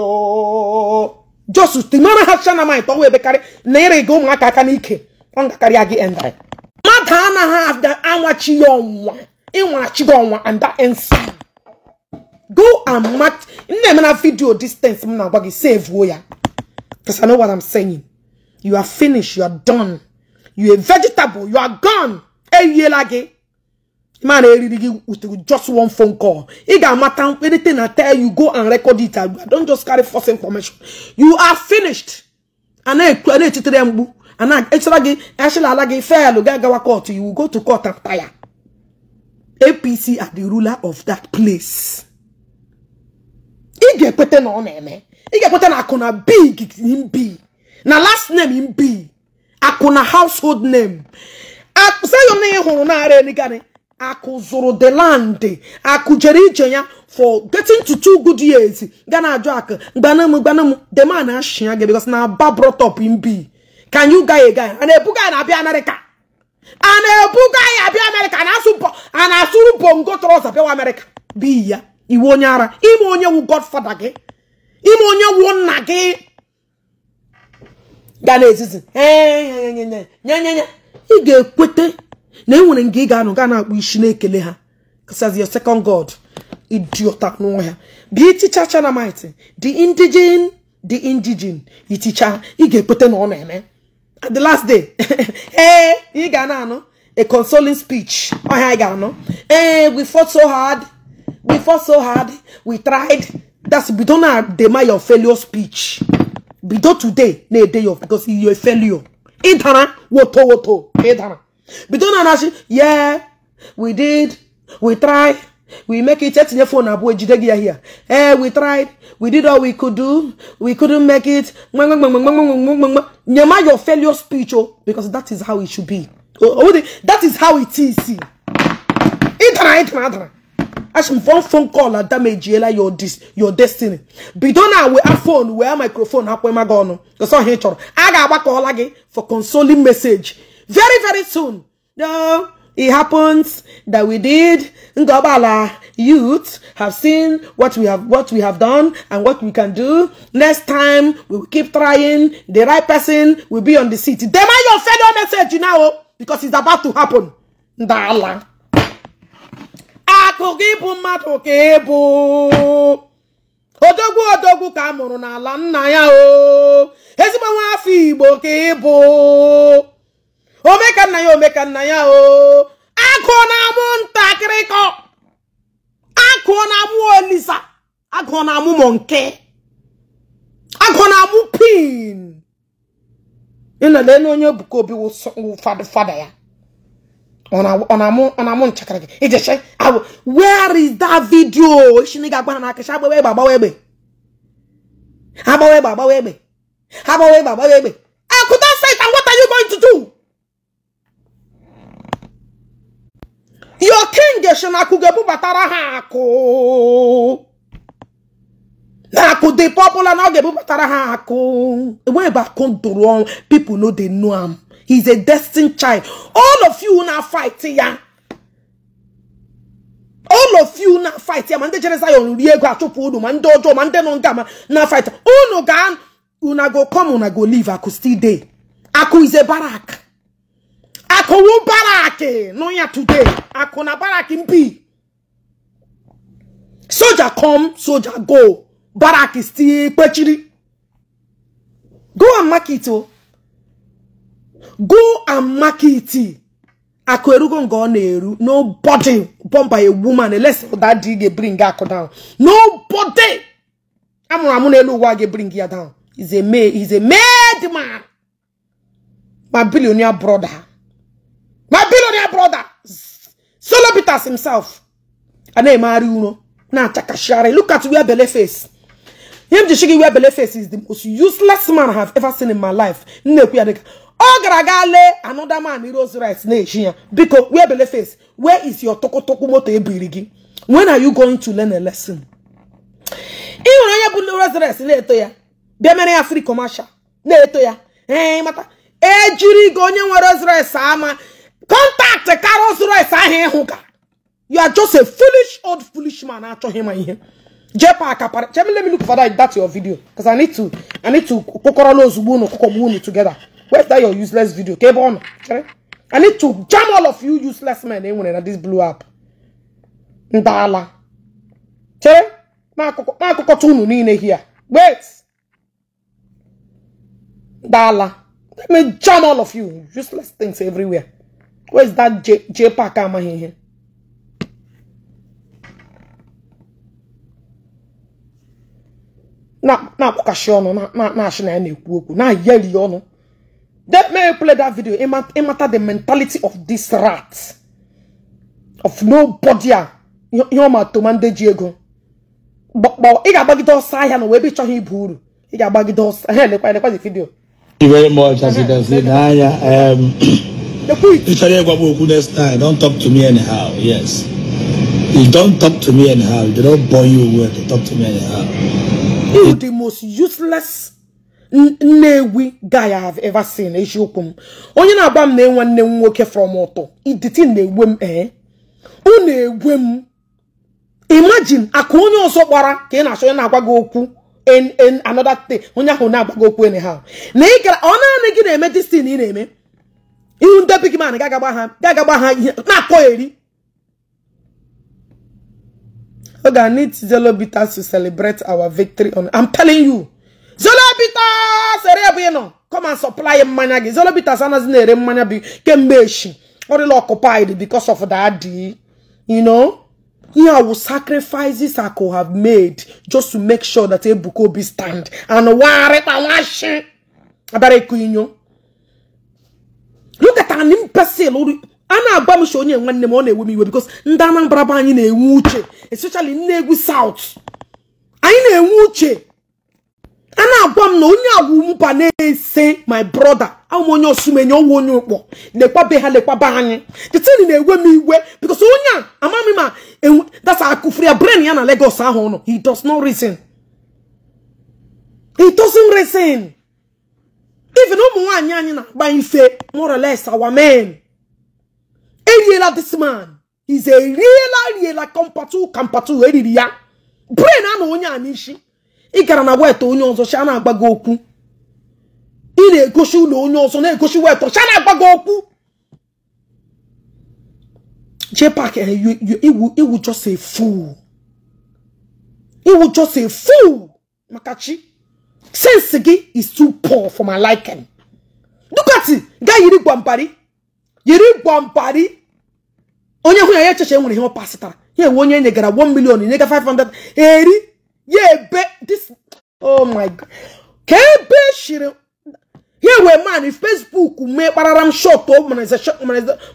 just mara ha chanamit ọnwa ebekarị na ịrị gị ụmụaka aka n'ike ọ ya gị endrị mmadụ anaghị anwachi ya ọnwa ịnwachi gị ọnwa and that ends go and match nna eme na vidio distance m na-agwa gị sevuo ya Because I know what I'm saying. You are finished. You are done. You are vegetable. You are gone. Man, with just one phone call. It got matter anything I tell you, go and record it. I Don't just carry false information. You are finished. And then credit to them. And I actually actually like fail gawa court. You will go to court and tire. APC are the ruler of that place. Ige pete no eme. ị ga-ekweta na akụna big mbi na last name mbi akụna household name na ị hụrụ narị eligani akụ zụrụ the land akụ jere ije ya for getting to two good years ga na-ajụ akụ gbanam gbanam the man ashia gị because na aba brought up mbi can you guy a guy a na-ebuga na abịa America a na-ebuga ya abịa asụ a na-asụrụ bongo trọza bịawa America bi ya iwe onye ara ime onye wu godfather gị ime onye wụ nna gị ga na-ezizi ị ga-ekweta na enwere nga ị ga-anụ gaa na-akpụ isi na-ekele ha says your second god idiota ya bịa iticha chanamite the indigene the indigene iticha ị ga-ekweta na ọ na-eme the last day ee ị ga na-anụ a consoling speech ọhịa ị ga-anụ ee we fought so hard we fought so hard we tried That's bido na dema your failure speech. Bido today na day of because you're a failure. Intana woto woto. Intana. Bido na nashi yeah we did we tried we make it etinye phone abụọ ejide gị ya here eh we tried we did all we could do we couldn't make it nyema your failure speech o oh, because that is how it should be oh, oh, that is how it is ịtara ịtara ịtara one phone call a damage yela your dis your destiny Be bidona we a phone we a microphone hapo ema gono goso he I got agbaka ola again for consoling message very very soon no it happens that we did Ngobala youth have seen what we have what we have done and what we can do. Next time we will keep trying. The right person will be on the seat. Demand your fellow message you now oh, because it's about to happen. Dala. akụkụ ịbụ mmadụ ka bụ odogwu odogwu ka a mụrụ n'ala nna ya o ezigbo nwa afọ igbo ka ịbụ omeka nna ya omeka nna ya o akụ na-amụ ntakịrị kọ akụ na-amụ olisa akụ na-amụ mọnke akụ na-amụ pin ịnọla elu onye Ebuka Obi fada ya ọna-amụ nchakara gị ijeche awụ where is that video shini ga-agwa ha n'aka agbawa webe agbawa webe agbawa webe agbawa webe agbawa webe I egbe eh, akụta site and what are you going to do your king shi na akụ ga na akụ dị popular na ọ ga-ebubatara ha akụ ebe people know they know am He's a destined child. All of you now fight ya. All of you now fight ya. Mande Jereza yon riego achopu unu. Mande ojo, mande nonga ma. Na fight. Unu oh, gan. Una go come, una go leave. Aku still day. Aku is a barak. Aku wu barake. No eh. ya today. Aku na barak impi. Soldier come, soldier go. Barak is still pechiri. Go and mark it oh. go and market it akụ erugo nga ọ na-eru nobody bomb a woman unless that dị ga bring akụ down nobody amụrụ amụ n'elu ụwa ga bring ya down is a made is a made man my billionaire brother my billionaire brother solo peters himself a na-emegharị na-achakashigharị look at where belle face him ji shigi where belle face is the most useless man i have ever seen in my life nne ya ọ gara aga lee another man heroes rice. na-echi ya biko wee bele face where is your tokotoku moto ebiri gị when are you going to learn a lesson ị nwere onye bụ heroes rice. na-eto ya bịa mere ya free commercial na-eto ya ee mata ejiri gị onye nwe heroes rights ama kọntaktị ka heroes rights ahụ ịhụ ka you are just a foolish old foolish man achọghị ma ihe jepa akapara let me look for that, that's your video because i need to i need to kụkọrọ ozugbo unu kụkọgbu unu together where's that your useless video ka ebe ọ chere I need to jam all of you useless men e nwere na this blue app ndala chere n'akụkọta unu niile here wait ndala let me jam all of you useless things everywhere where's that j j amaghị ihe na-akpọkashi ọnụ na-achị na ya na-ekwu okwu na-ayeli ọnụ Let me play that video. It matter, the mentality of this rat. Of nobody. You You're my tomande Diego. But but it got bagged outside and we be trying to buru. It got bagged outside. Hey, look at the video. Thank you very much, as you can see. Naya, um, Richard Egwabuku next time. Don't talk to me anyhow. Yes. You don't talk to me anyhow. They don't bore you with. Talk to me anyhow. You the most useless Nnewi guy I have ever seen eziokwu m onye na-agba m na-enwe nne m nwoke from ụtọ iditi na-egwe m ee eh? ụ na-egwe m imagine aka onye ọzọ gbara ka ị na-achọ onye na-agwa gị okwu en another thing onye ahụ na agba gị okwu enyi ha na ị gara ọ naanị gị na-eme destin ị na-eme ihu ndị big man ga-agagba ha ga-agagba ha ihe na-akọ eri oge I need zelo bitters to celebrate our victory on I'm telling you Zolobita sere ebe ị nọ come and supply mmanya gị Zolobita anaghị na-ere mmanya bi kemgbe echi ọ dịla occupied because of that you know ihe awu sacrifices I could have made just to make sure that Ebuka Obi stand and warịta nwashi abịara ịkụ inyo look at an imbecile a na-agba m onye nwanne m ọ na-ewe m iwe because ndị Anambra anyị na-enwe uche especially Nnegwu South anyị na-enwe uche ana agwa m na onye agwụmpa na-ese my brother ahụ onye osumenye ọnwụ onye ụkpọ lekwabe ha lekwaba anyị teteni na-ewe m iwe because onye a amaghị ma dasa akụfuru ya brain ya na Lagos ahụ nọ he does not reason he doesn't reason even ụmụ nwaanyị anyị na-agba ife more or less our men eriela this man is eriela riela kampatu kampatu eriri ya brain a na onye a n'isi ị gara na weta onye ọzọ cha na-agba gị okwu ị na-egosi ụlọ onye ọzọ na-egosi weta cha na-agba gị okwu JPAC eh, iwu just a iwu just a fool maka chi sense gị is too poor for my liking dukati gaa yiri gwampari yiri gwampari onye hụ ya ya echeche nwere ihe ọ pasịtara ya ewe onye e nyegara 1 million e nyega 500 eri ya ebe this oh my god ka ebe shiri ya wee man facebook mee kparara m shot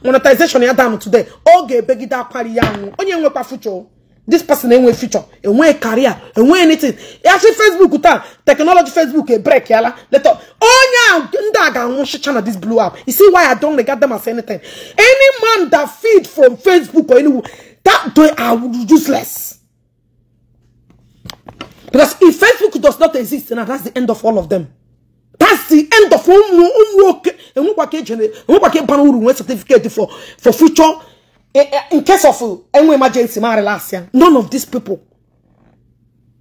monetization ya down today ọ ga-ebegide akwari ya nwụ onye nwekwa future this person enwe future enwe career enwe ya see facebook taa technology facebook ebrek break yala later onye ndị a ga-anwụ shicha na this blue app you see why i don't regard them as anything any man that feed from facebook or anywhere that they are useless Because if Facebook does not exist, now that's the end of all of them. That's the end of all certificate for for future eh, eh, in case of eh, any emergency. None of these people.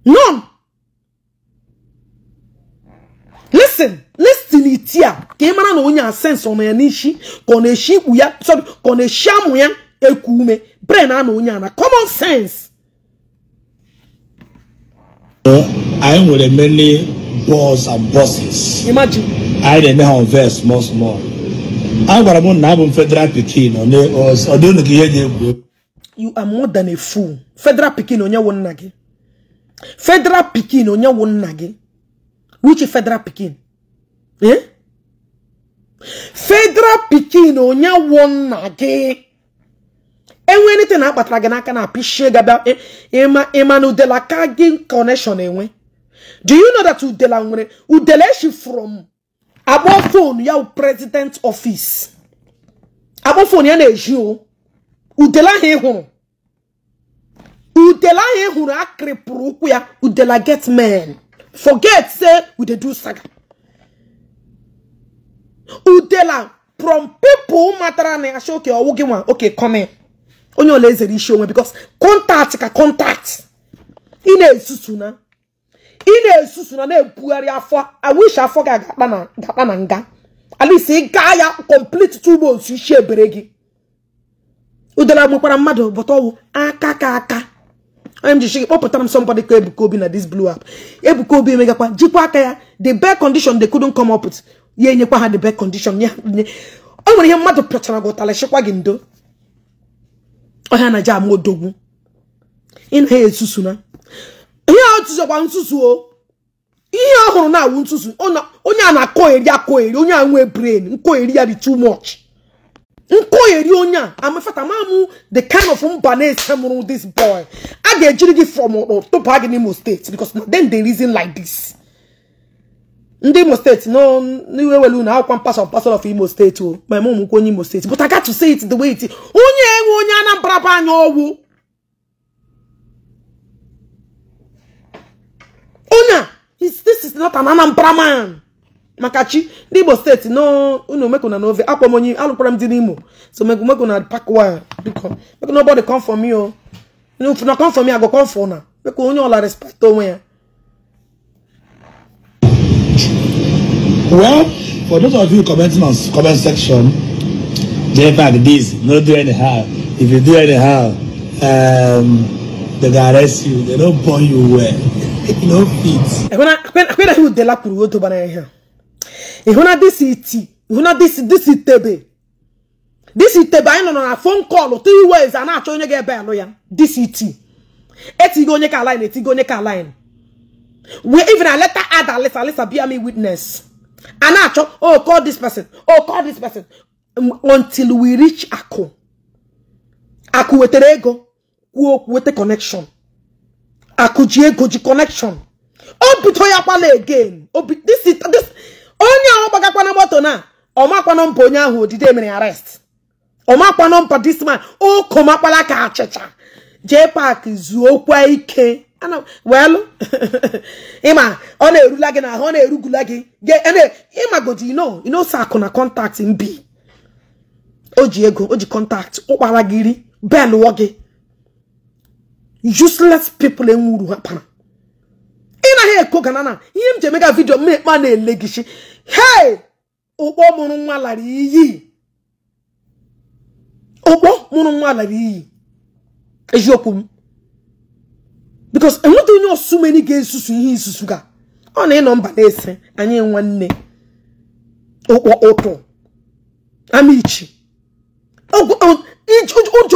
None. Listen, listen it here. na no unya sense on n'ishi koneshi uya, sorry, koneshi amuya, ekume, brain ano unya na common sense. anyị nwere many balls and bosses anyị na-eme ha nve small small a gwara m na abụ m federal pikin ọ dị unu ihe gị egwu you are more than a fool federal pikin onye wụ nna gị federal pikin onye wụ nna gị which federal pikin eh federal pikin onye wụ nna gị enwe anything akpatara gị n'aka na apishie gaba ịma ịma na udela ka gị connection enwe do you know that udela nwere udela eshi from akpọ fon ya president office akpọ fon ya na-eji o udela ahụ ịhụrụ udela ahụ ịhụrụ hụrụ akịrịpụrụ ụkwụ ya udela get men forget say we dey do saga udela from pipo matara na ya sị oke ọwụ gị nwa oke come onye ole ezere isi onwe because kọntakt ka kọntakt ị na-esusu na ị na-esusu na na-ebugharị afọ awish afọ gị ga-akpa na nga alisi ị gaa ya complete two months isi ebere gị udara gbakwara mmadụ bọta ọwụ aka ka aka onye m ji shigị kpọpụtara m somebody ka Ebuka Obi na dis blu app Ebuka Obi emegakwa jikwa aka ya the bed condition they couldn't come up with ya enyekwa ha the bed condition ya o nwere ihe mmadụ pịachara gị ụtalị chịkwa gị ndo ọhịa na jam odogwu ịnaghị esusu na ihe a tụzọkwa nsusu o ihe ọ hụrụ na-awụ nsusu onye a na-akọgheri akọgheri onye a nwee brain nkọgheri ya dị too much nkọgheri onye a amafata mamụ the kind of mba na-ese mụrụ this boy i ga-ejiri from tụba gị n'Imo steeti because then they reason like this ndị imo steeti n'iwe were unu akwụkwọ mpasọ mpasọ of imo steeti o oh. ma eme ụmụnkwụ onye imo steeti but I to say it the way it is onye enwe onye anambra bụ anya ọgwụ onye this is not an anambra man maka chi ndị igbo steeti unu mekona na ove akpọ m onye alụkwara m dị n'imo so mekona pakwa biko mekona ọbọdị kọmfọm ya o unu funa kọmfọm ya go kọmfọ na mekwa onye ọla respekt onwe ya Well, for those of you commenting on comment section, in fact, this, no do anyhow. If you do anyhow, um, they go arrest you. They don't burn you well. no fit. Akwena hu de la kuru wo to bana ehia. Ihuna this iti. Ihuna this this itebe. This itebe ayi no na phone call or three ways and acho onye ga ebe alo ya. This iti. E eti go onye ka line, eti go onye line. We even a letter add a letter, letter be a me witness. a na-achọ oh call this person oh call this person um, until we reach akụ akụ wetara ego kwuo okwu weta connection akụ ji ego ji connection o buto ya kwala again onye ahụ gbagakwana moto na ọmakwa nọmba onye ahụ odide mere arrest ọmakwa nọmba this man o komakwala ka achịcha jee zuo zuokwa ike welụ ịma ọ na-erula gị na ọ na-erugula gị ịmagodi ino ino so akụ na kọntaktị mbi o ji ego o ji kọntaktị ụkpara gị ri belụọ gị useless people enwuru ha kpara ị naghị na ganana ihe m ji vidio m ekpe na-ele gị si hei okpo mụrụ nwa okpo mụrụ nwa lara iyi eziokwu m because I'm not so many games, sugar. onye ọsụ number ga-esusu ihe isusu ga ọ na-ịnọ mba Oh, ese oh, oh, ụkpọ ụtụ amichi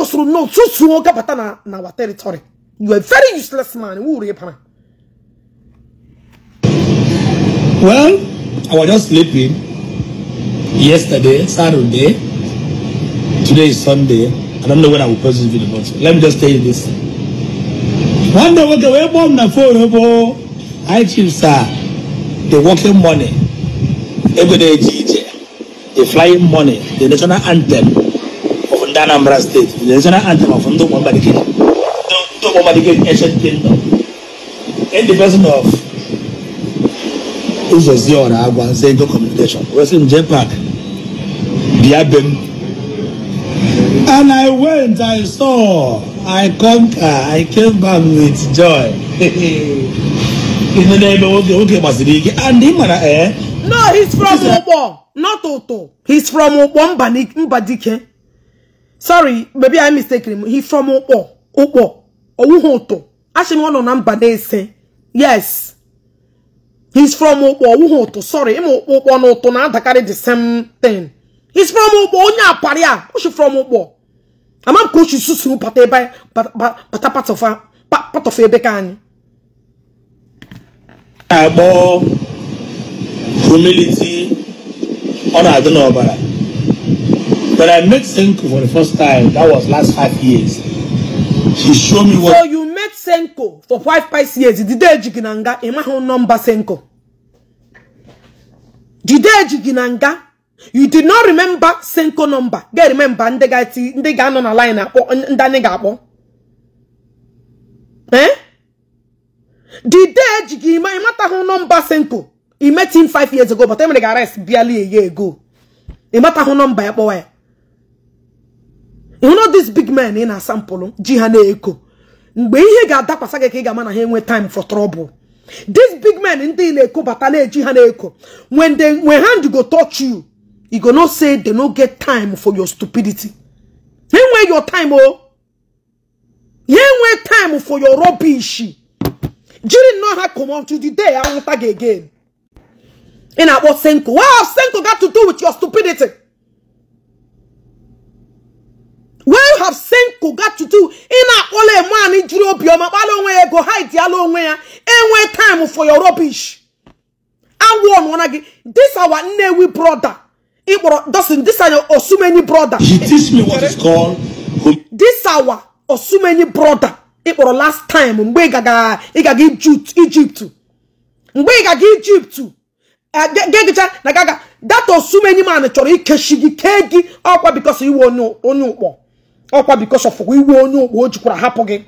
o so nọ susuo gabata na na our territory you are very useless man Who are you? well i was just sleeping yesterday saturday today is sunday i don't know when i will post this video but let me just tell you this wanda kuka wai bom na foro bo aikin a the working money ego da yaji ije the flying money the national anthem of Anambra state the national anthem of Ndo Mwamba Dike Ndo Mwamba Dike ancient kingdom in the person of Uzozi Ora Agwa Zengo communication Western J Park Biabem and I went I saw I come I came back with joy. and him and I, no, he's from Ubo, not Oto. He's from mba dike Sorry, maybe I mistaken him. He's from Ubo, Ubo, Ouhoto. Actually, one on Mbadese. Yes. He's from Ubo, Ouhoto. Sorry, him ugbo and Oto na adakarị the same thing. He's from ugbo onye apari a. Who's from ugbo. ama ko shi susu pata ebe pata part of part of ebe ka anyị agbo humility ọ na-adị n'ọbara When I met Senko for the first time, that was last five years. She showed me what. So you met Senko for five, five years. Did they jiginanga? Emma, how number Senko? Did they jiginanga? you did not remember senko number get remember ndị ga-anọ na line akpọ ndị anyị ga-akpọ the eh? dide eji gị ime ịmatahụ nọmba senko him 5 years ago but emere ga arrest bịalie ya ego ịmatahụ nọmba ya kpọwa ya you know this big man ị na sample ji ha na-eko mgbe ihe ga-adakwasa gị ka ị ga-ama na ha enwe time for trouble this big man ndị na-eko bata na-eji ha na-eko when when hand go touch you you go not say they no get time for your stupidity. They where your time, oh. You where time for your rubbish. During not have come on to the day I won't tag again. And I was Senko. What have Senko got to do with your stupidity? What have Senko got to do? In a ole man in Juro Bioma, Balonwe go hide the Alonwe, and where time for your rubbish. I warn one again. This our Newi brother. Ikporo doesn't this are your Osumeni brother. He teach me what is called. This our Osumeni brother. Ikporo last time mgbe ị gaga ị Egypt Egypt. Mgbe ị Egypt. Eh, Gegicha na gaga that Osumeni man chọrọ ikeshi gị kee gị ọkwa because iwe onye onye ụkpọ. Ọkwa because of iwe onye ụkpọ o jikwara hapụ gị.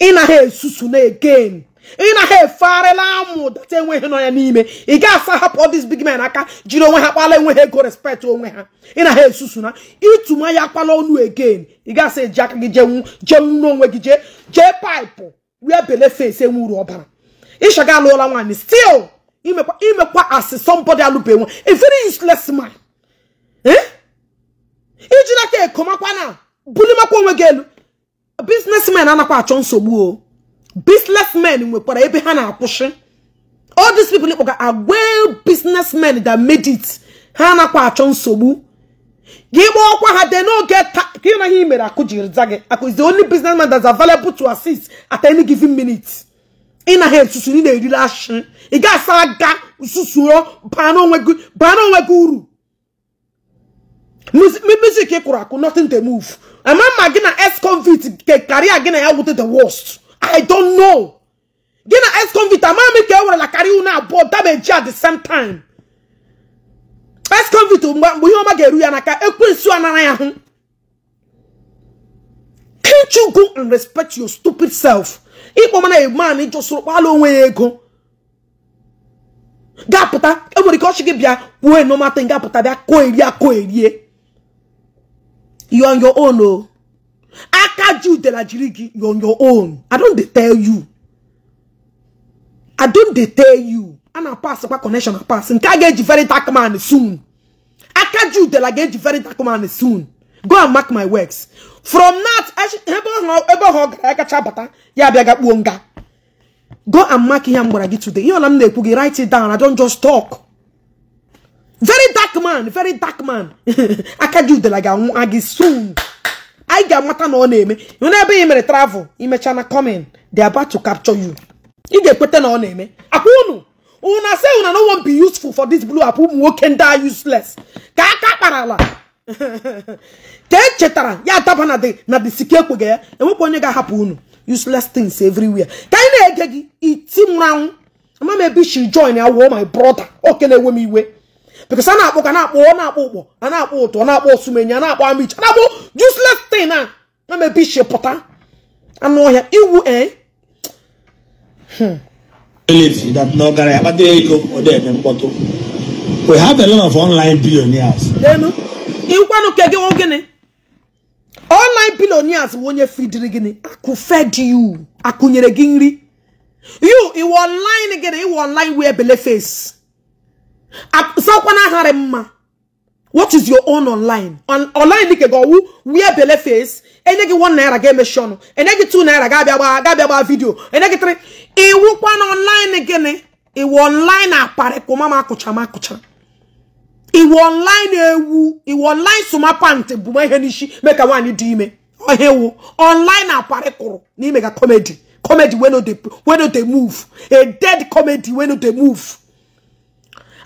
Ị na ha esusu na again. ị na ha eferịla amụ data enweghị nọ ya n'ime ị ga-asa hapụ ọdịs big men aka jiri onwe ha kpala enweghị ego respect onwe ha ị na ha esusu na ịtụma ya kpala ọnụ again ị ga-asa eji aka gị jenwu jenwu n'onwe gị jee jee paịpụ wee bele fesi enwuru ọbara ịshaga alụọla nwaanyị stil imekwa imekwa asị somebody alụbeghị nwa a very ma man eh? na ka ekomakwa na bulimakwa onwe gị elu bisnesmen anakwa achọ nsogbu o businessmen nwekwara ebe ha na-akwụsị all these people kpọga agwa businessmen that made it ha nakwa achọ nsogbu gị kpọọkwa ha de n'oge ka na ihe mere akụ jiri za gị akụ is the only businessman that's available to assist at any given minute ị na ha esusu ị na erire ashị ị ga-asa aga susuo baa n'onwe gị uru music ị kụrụ akụ nothing to move ama mma gị na ex-convict ke karịa gị na ya wute the worst i don't know gị na ex-convict amami ka e werela karịa unu abụọ dameji at the same time ex-convict mgbe ihe ọma ga-eru ya n'aka ekwensu anara ya hụ can't you go and respect your stupid self ịkpọ mana a man just kpala onwe ya ego ga e enwere ike ọchị gị bịa kwuo enomata ga-apụta bịa kụọ erie akụọ erie you on your own Aka Jew de la Jirigi, you're on your own. I don't they tell you. I don't they tell you. And I pass about connection, I pass. And I get very dark man soon. Aka Jew de la get very dark man soon. Go and mark my works. From that, I Go and mark him what I did today. You know I'm Write it down. I don't just talk. Very dark man, very dark man. Aka Jew de la get soon. anyị ga-amata na ọ na-eme hụ ebe mere travel imecha na coming they are about to capture you ị ga-ekweta na ọ na-eme akwa unu una say una no wan be useful for this blue app ụmụ nwoke ndị a useless ka aka kpara ala ka echetara ya adaba na dị na dị sike ekweghị ya enwekwa onye ga-ahapụ unu useless things everywhere ka anyị na-ege gị iti mmanwụ ama m she join ya wụọ my brother oke na-ewe m iwe because a na-akpọ ka na-akpọ ọ na-akpọ ụkpọ a na-akpọ ụtọ na-akpọ osumenya na-akpọ amicha na-akpọ useless tin a na mebe iche pụta anụ ọhịa iwu ee eh? hmm. n'ọgara ya kpata ego ọ dị mkpọtụ we have a lot of online billionaires ịkwanụ ke online billionaires bụ onye fidiri fed you gị nri you iwe online gịnị iwe online bele face sakwana aghara mma what is your own online On online dike ga ọwụ wee bele face enye gị 1 naira ga-emechi ọnụ enye gị 2 naira ga-abịa gbaa ga-abịa gbaa vidio enye gị 3 iwụkwa na online gịnị iwu online akparị kụma ma akụcha ma akụcha iwu online ewu iwu online suma sumapant bụ ihe n'ishi mee ka nwaanyị dị ime ọhịa ewu online akparị kụrụ n'ime ga comedy comedy wey no no dey move a dead comedy wey no dey move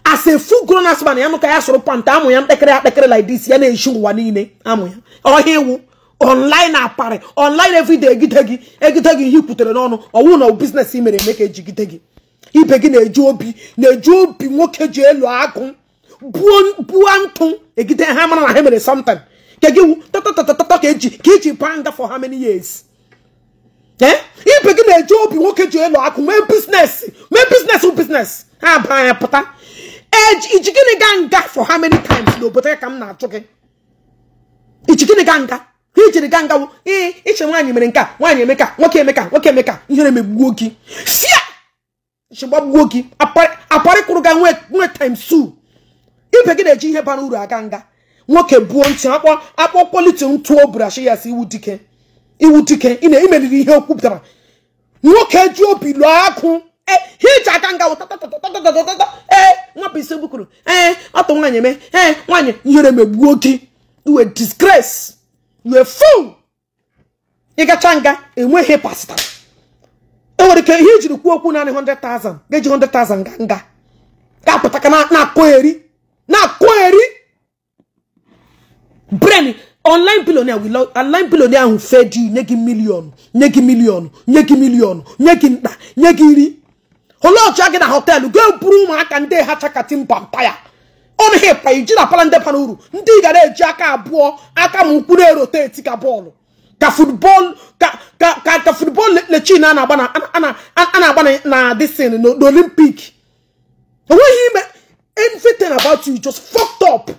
as a full grown ass man ya nụka ya soro panta amụ ya mkpekere akpekere like this ya na-eshi ụwa niile amụ ya ọhịa iwu online aparị online everyday egide gị egide gị ihe kwutere n'ọnụ ọwụ na biznes mere eme ka ejigide gị ibe gi na-eji obi na obi nwoke ji elu agụ buo ntụ egide ha mara na ha mere sometime ka ka eji ka iji baa for how many years ibe gị na-eji obi nwoke ji elu akụ mee biznes mee biznes biznes ha baa pụta iji gịnị gaa nga for how many times n'obodo ya ka m na atụ gị iji gịnị nga ka ijiri ga nga ee iche nwaanyị mere nke a nwaanyị emeka nwoke emeka nwoke emeka ihere emegbuo gị sia chigbagbuo gị aparịkwụrụ ga nwee times two ibe gị na-eji ihe bara uru aga nga nwoke buo ntị akpọ akpọ kwoliti ntụo brashi ya si iwu dike iwu dike ị na-emeriri ihe o nwoke ji obi lụọ akụ hiji eh, aka nga wụtatatatatatatatata ee eh, nwapụ isi bukuru ee eh, ọtụ nwaanyị eme ee nwaanyị ihere megbuo gị uwe disgrace uwe fuu ịgacha nga enweghị pasta e nwere ike ihe ijiri kwuo okwu naanị 100,000 ga-eji 100,000 ga nga ga-apụta ka na-akụgheri na-akụgheri bren online billionaire will online billionaire ahụ fed nye gị miliọnụ nye gị miliọnụ nye gị miliọnụ nye gị nta nye gị nri. olee otu a gị na họteelụ gaa buru ụmụaka ndị ha chakatimba mpaya ọ naghị ịpa iji na pala ndị bara uru ndị ị ga na-eji aka abụọ aka ma ụkwụ na-eroteti ka bọọlụ ka futbọọlụ ka futbọọlụ lechin a na-agba na disin n'olimpik enweghị ime everything about you just fucked up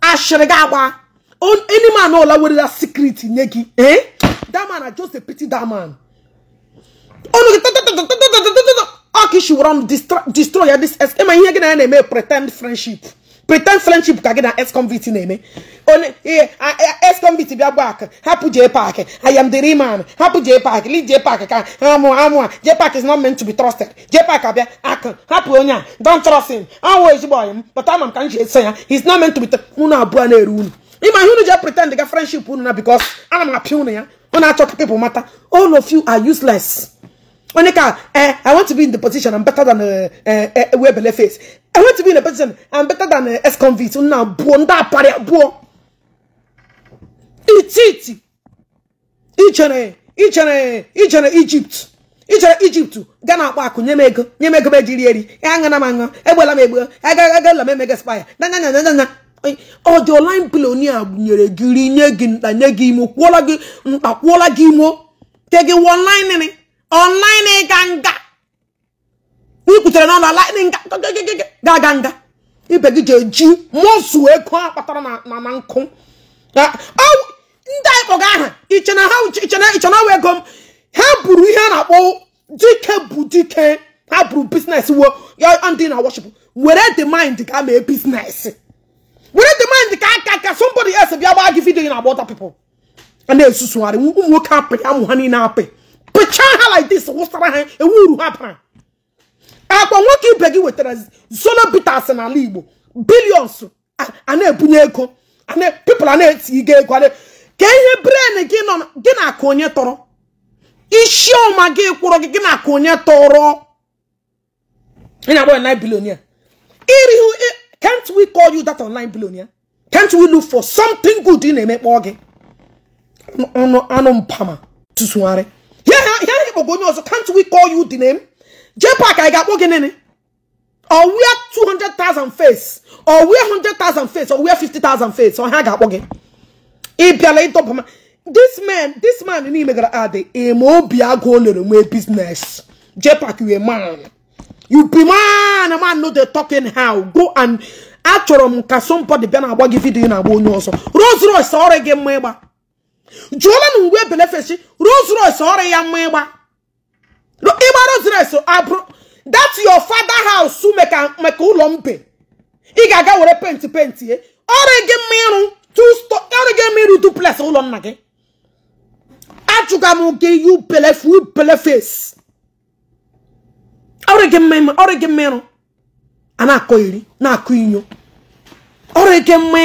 ashịrị gị agba any man ọla werela secret nye gị eh that na just a pity that ọnụ gị you run destroy ya this ex ịma ihe gị na ya na-eme pretend friendship pretend friendship ka gị na ex convict na-eme onye ihe ex convict bịa gba ak hapụ jee park I am the real man hapụ jee park leave jee park ka amụ amụ a jee park is not meant to be trusted jee park abịa ak hapụ onye a don't trust him ọnwụ ezigbo ọyị m but ama m ka m ji ya he is not meant to be unu abụọ na-eru unu ịma ihe unu jee pretend ga friendship unu na because ana m apịa unu ya unu achọ ka people mata all of you are useless onye ka eh, I want to be in the position I'm better than eh, eh, Webele face I want to be in the position I'm better than ex-convict nna abuo ndị aparị abuo. ititi ichere ichere ichere Egypt ichere Egypt ga na-akpọ akụ nye m ego nye m ego e m ejiri eri aṅara m aṅụ egbela m egbe agagala m emega spaya nanyanyanyanya ọ dị online billionaire nyere gị nye gị nta nye gị imo kwụọla gị nta kwụọla gị imo online ịga nga ikwutere n'ọnụ online ga-aga nga ibe gị ga-eji mụsụ ego a kpatara na nkụ ndị anyị kpọga aha ichena wee ego m ha buru ihe a na-akpọ dike bụ dike ha buru biznes wo ndị na worship were the mind ka mee biznes were the mind ka aka ka somebody else bịa gbaa gị vidiyo na agba ọta pipụl a na-esusugharị ụmụ nwoke apị amụ ha niile apị pịchaa ha like this wụsara ha ewu uru ha bara akpa nwoke ibe gị wetara zolo bitas n'ala igbo bilions a na-ebunye ego pipụl a na-eti ego ego ka ihe bren gị nọ gị na-akụ onye tọrọ isi ọma gị kwụrụ gị gị na-akụ onye tọrọ ị na-akpọ online billionaire irihu can't we call you that online billionaire can't we look for something good ị na emekpọ gị anụ mpama tụsụgharị ihe ha ikpọgo onye ọzọ can't we call you di name JPAC anyị ga-akpọ gị nene or wear 200,000 face or wear 100,000 face or wear 50,000 face or ha ga-akpọ gị ị bịala ịdọba ma this man this man niile gara adị eme obi agụ o lere nwee business JPAC you a man you be man a man no dey talking how go and achọrọ m ka somebody bịa na-agba gị vidiyo na-agba onye ọzọ Rolls Royce gị mma ịgba jụọla na uwe belefeshi Rolls Royce ọrụ ya mma ịgba ịgba Rolls Royce abụrụ that your father house make maka ụlọ mbe ị ga-aga were penti penti ye ọrụ gị mma ịrụ ọrụ gị mma ịrụ duplex ụlọ nna gị ajụga m gị yu belefu belefes ọrụ gị mma ọrụ gị mma ịrụ a na-akọ iri na-akọ inyo ọrụ gị mma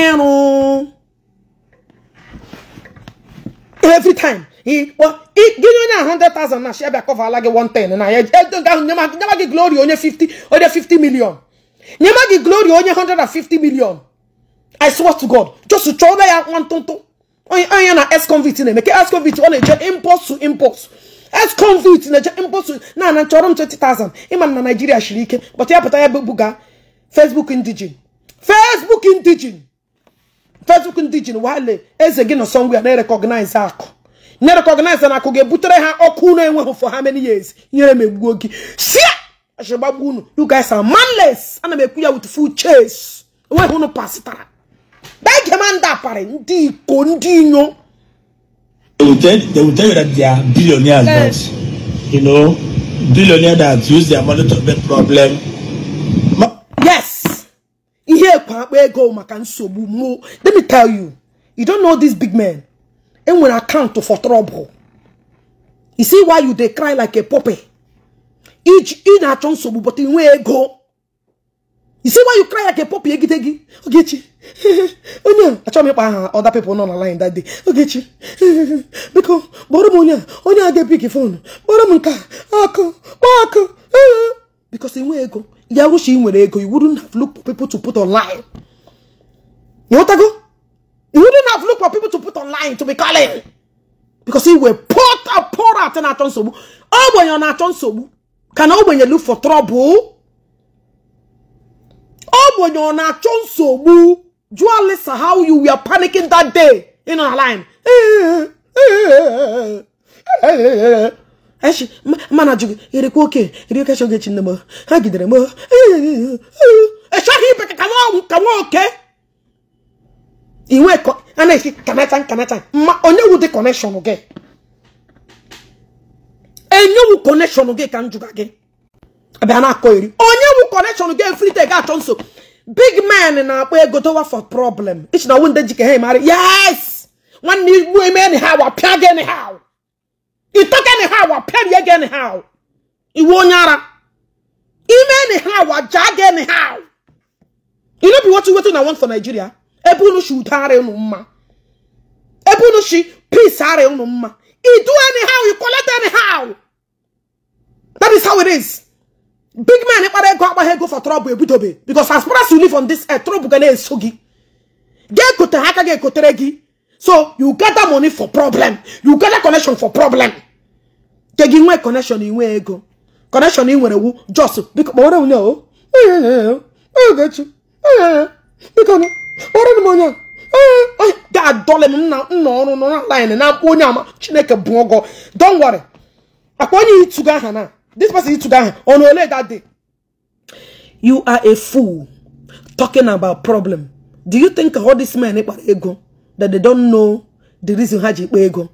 every time he he give you a hundred thousand na shia bịa kọvala gị one ten and I na ya never get glory only fifty only fifty million never get glory only hundred and fifty million i swear to god just to chọrọ ya nwantụntụ onye anya na ex convict na-eme ke ex convict only just eje to impos ex convict na-eje impos to na ana chọrọ twenty thousand ịma na Nigeria shiri but kpọta ya pụta ya facebook indigin facebook indigin facebook ndị ji wale eze gị nọ ngwa na-erekọgnaize akụ na-erekọgnaize akụ ga-ebutere ha ọkụ unu enweghị for how many years nyere m egbuo gị shia achigbagbu unu you guys are manless ana m ekwu ya with full chase enweghị unu pasitara bege ma ndị aparị ndị iko ndị inyo that use their money to make problem akpa ego maka nsogbu mo let me tell you you don't know this big man enwere account for trouble you see why you dey cry like a puppy ị na-achọ nsogbu but inwe ego you see why you cry like a puppy egide gị ogechi onye a achọghị m ịkpa aha other people nọ na line that day ogechi biko kpọrọ m onye a onye a ga gị fon kpọrọ m nke a akụ kpọọ akụ because ego you wouldn't have looked for people to put online you You wouldn't have looked for people to put online to be calling because he were put a poor out in aton sobu oh when you're not on sobu can oh when you look for trouble oh when you're not on sobu do you listen how you were panicking that day in online echi mana jụ gị ịrịkwa oke iri oke chọgị echi nne m ha gidere m echaghị ibe ka ka nwa oke iwe a na-esi kanata nkanata ma onye wu dị kọnekshọn gị Enyewu wu gị ka m jụga gị abịa na-akọ iri onye wu kọnekshọn gị efrite ga-achọ nso big man na-akpọ ego dowa for problem ichi na ọwụ ndị jike ha emara yes nwanne igbu eme anyhow apịa gị anyhow ị tọka anyhow wapịa rie gị anyhow iwe onye ara ime anyhow wajaa gị anyhow you no be wetin wetin na want for nigeria ebe unu shi udo ara unu mma ebe unu shi peace ara unu mma you do anyhow you collect anyhow that is how it is big man ịkpara ego akpaghị ego for trouble ebidobe because as far as you live on this earth trouble ga na-eso gị ga ekote ha aka ga ekotere gị so you gather money for problem you gather connection for problem ka gị nwee connection inwe ego connection ị nwere wu jos biko kpọrọ onye o Ogechi biko kpọrọ m onye ga-adọle m nna ọrụ nọ na line na mkpa onye ama chineke bụ ọgọ don worry akpa onye ịtụga aha na this person ịtụga aha ọnụ ole that day you are a fool talking about problem do you think all this men kpara ego that they don't know the reason ha ji kpa ego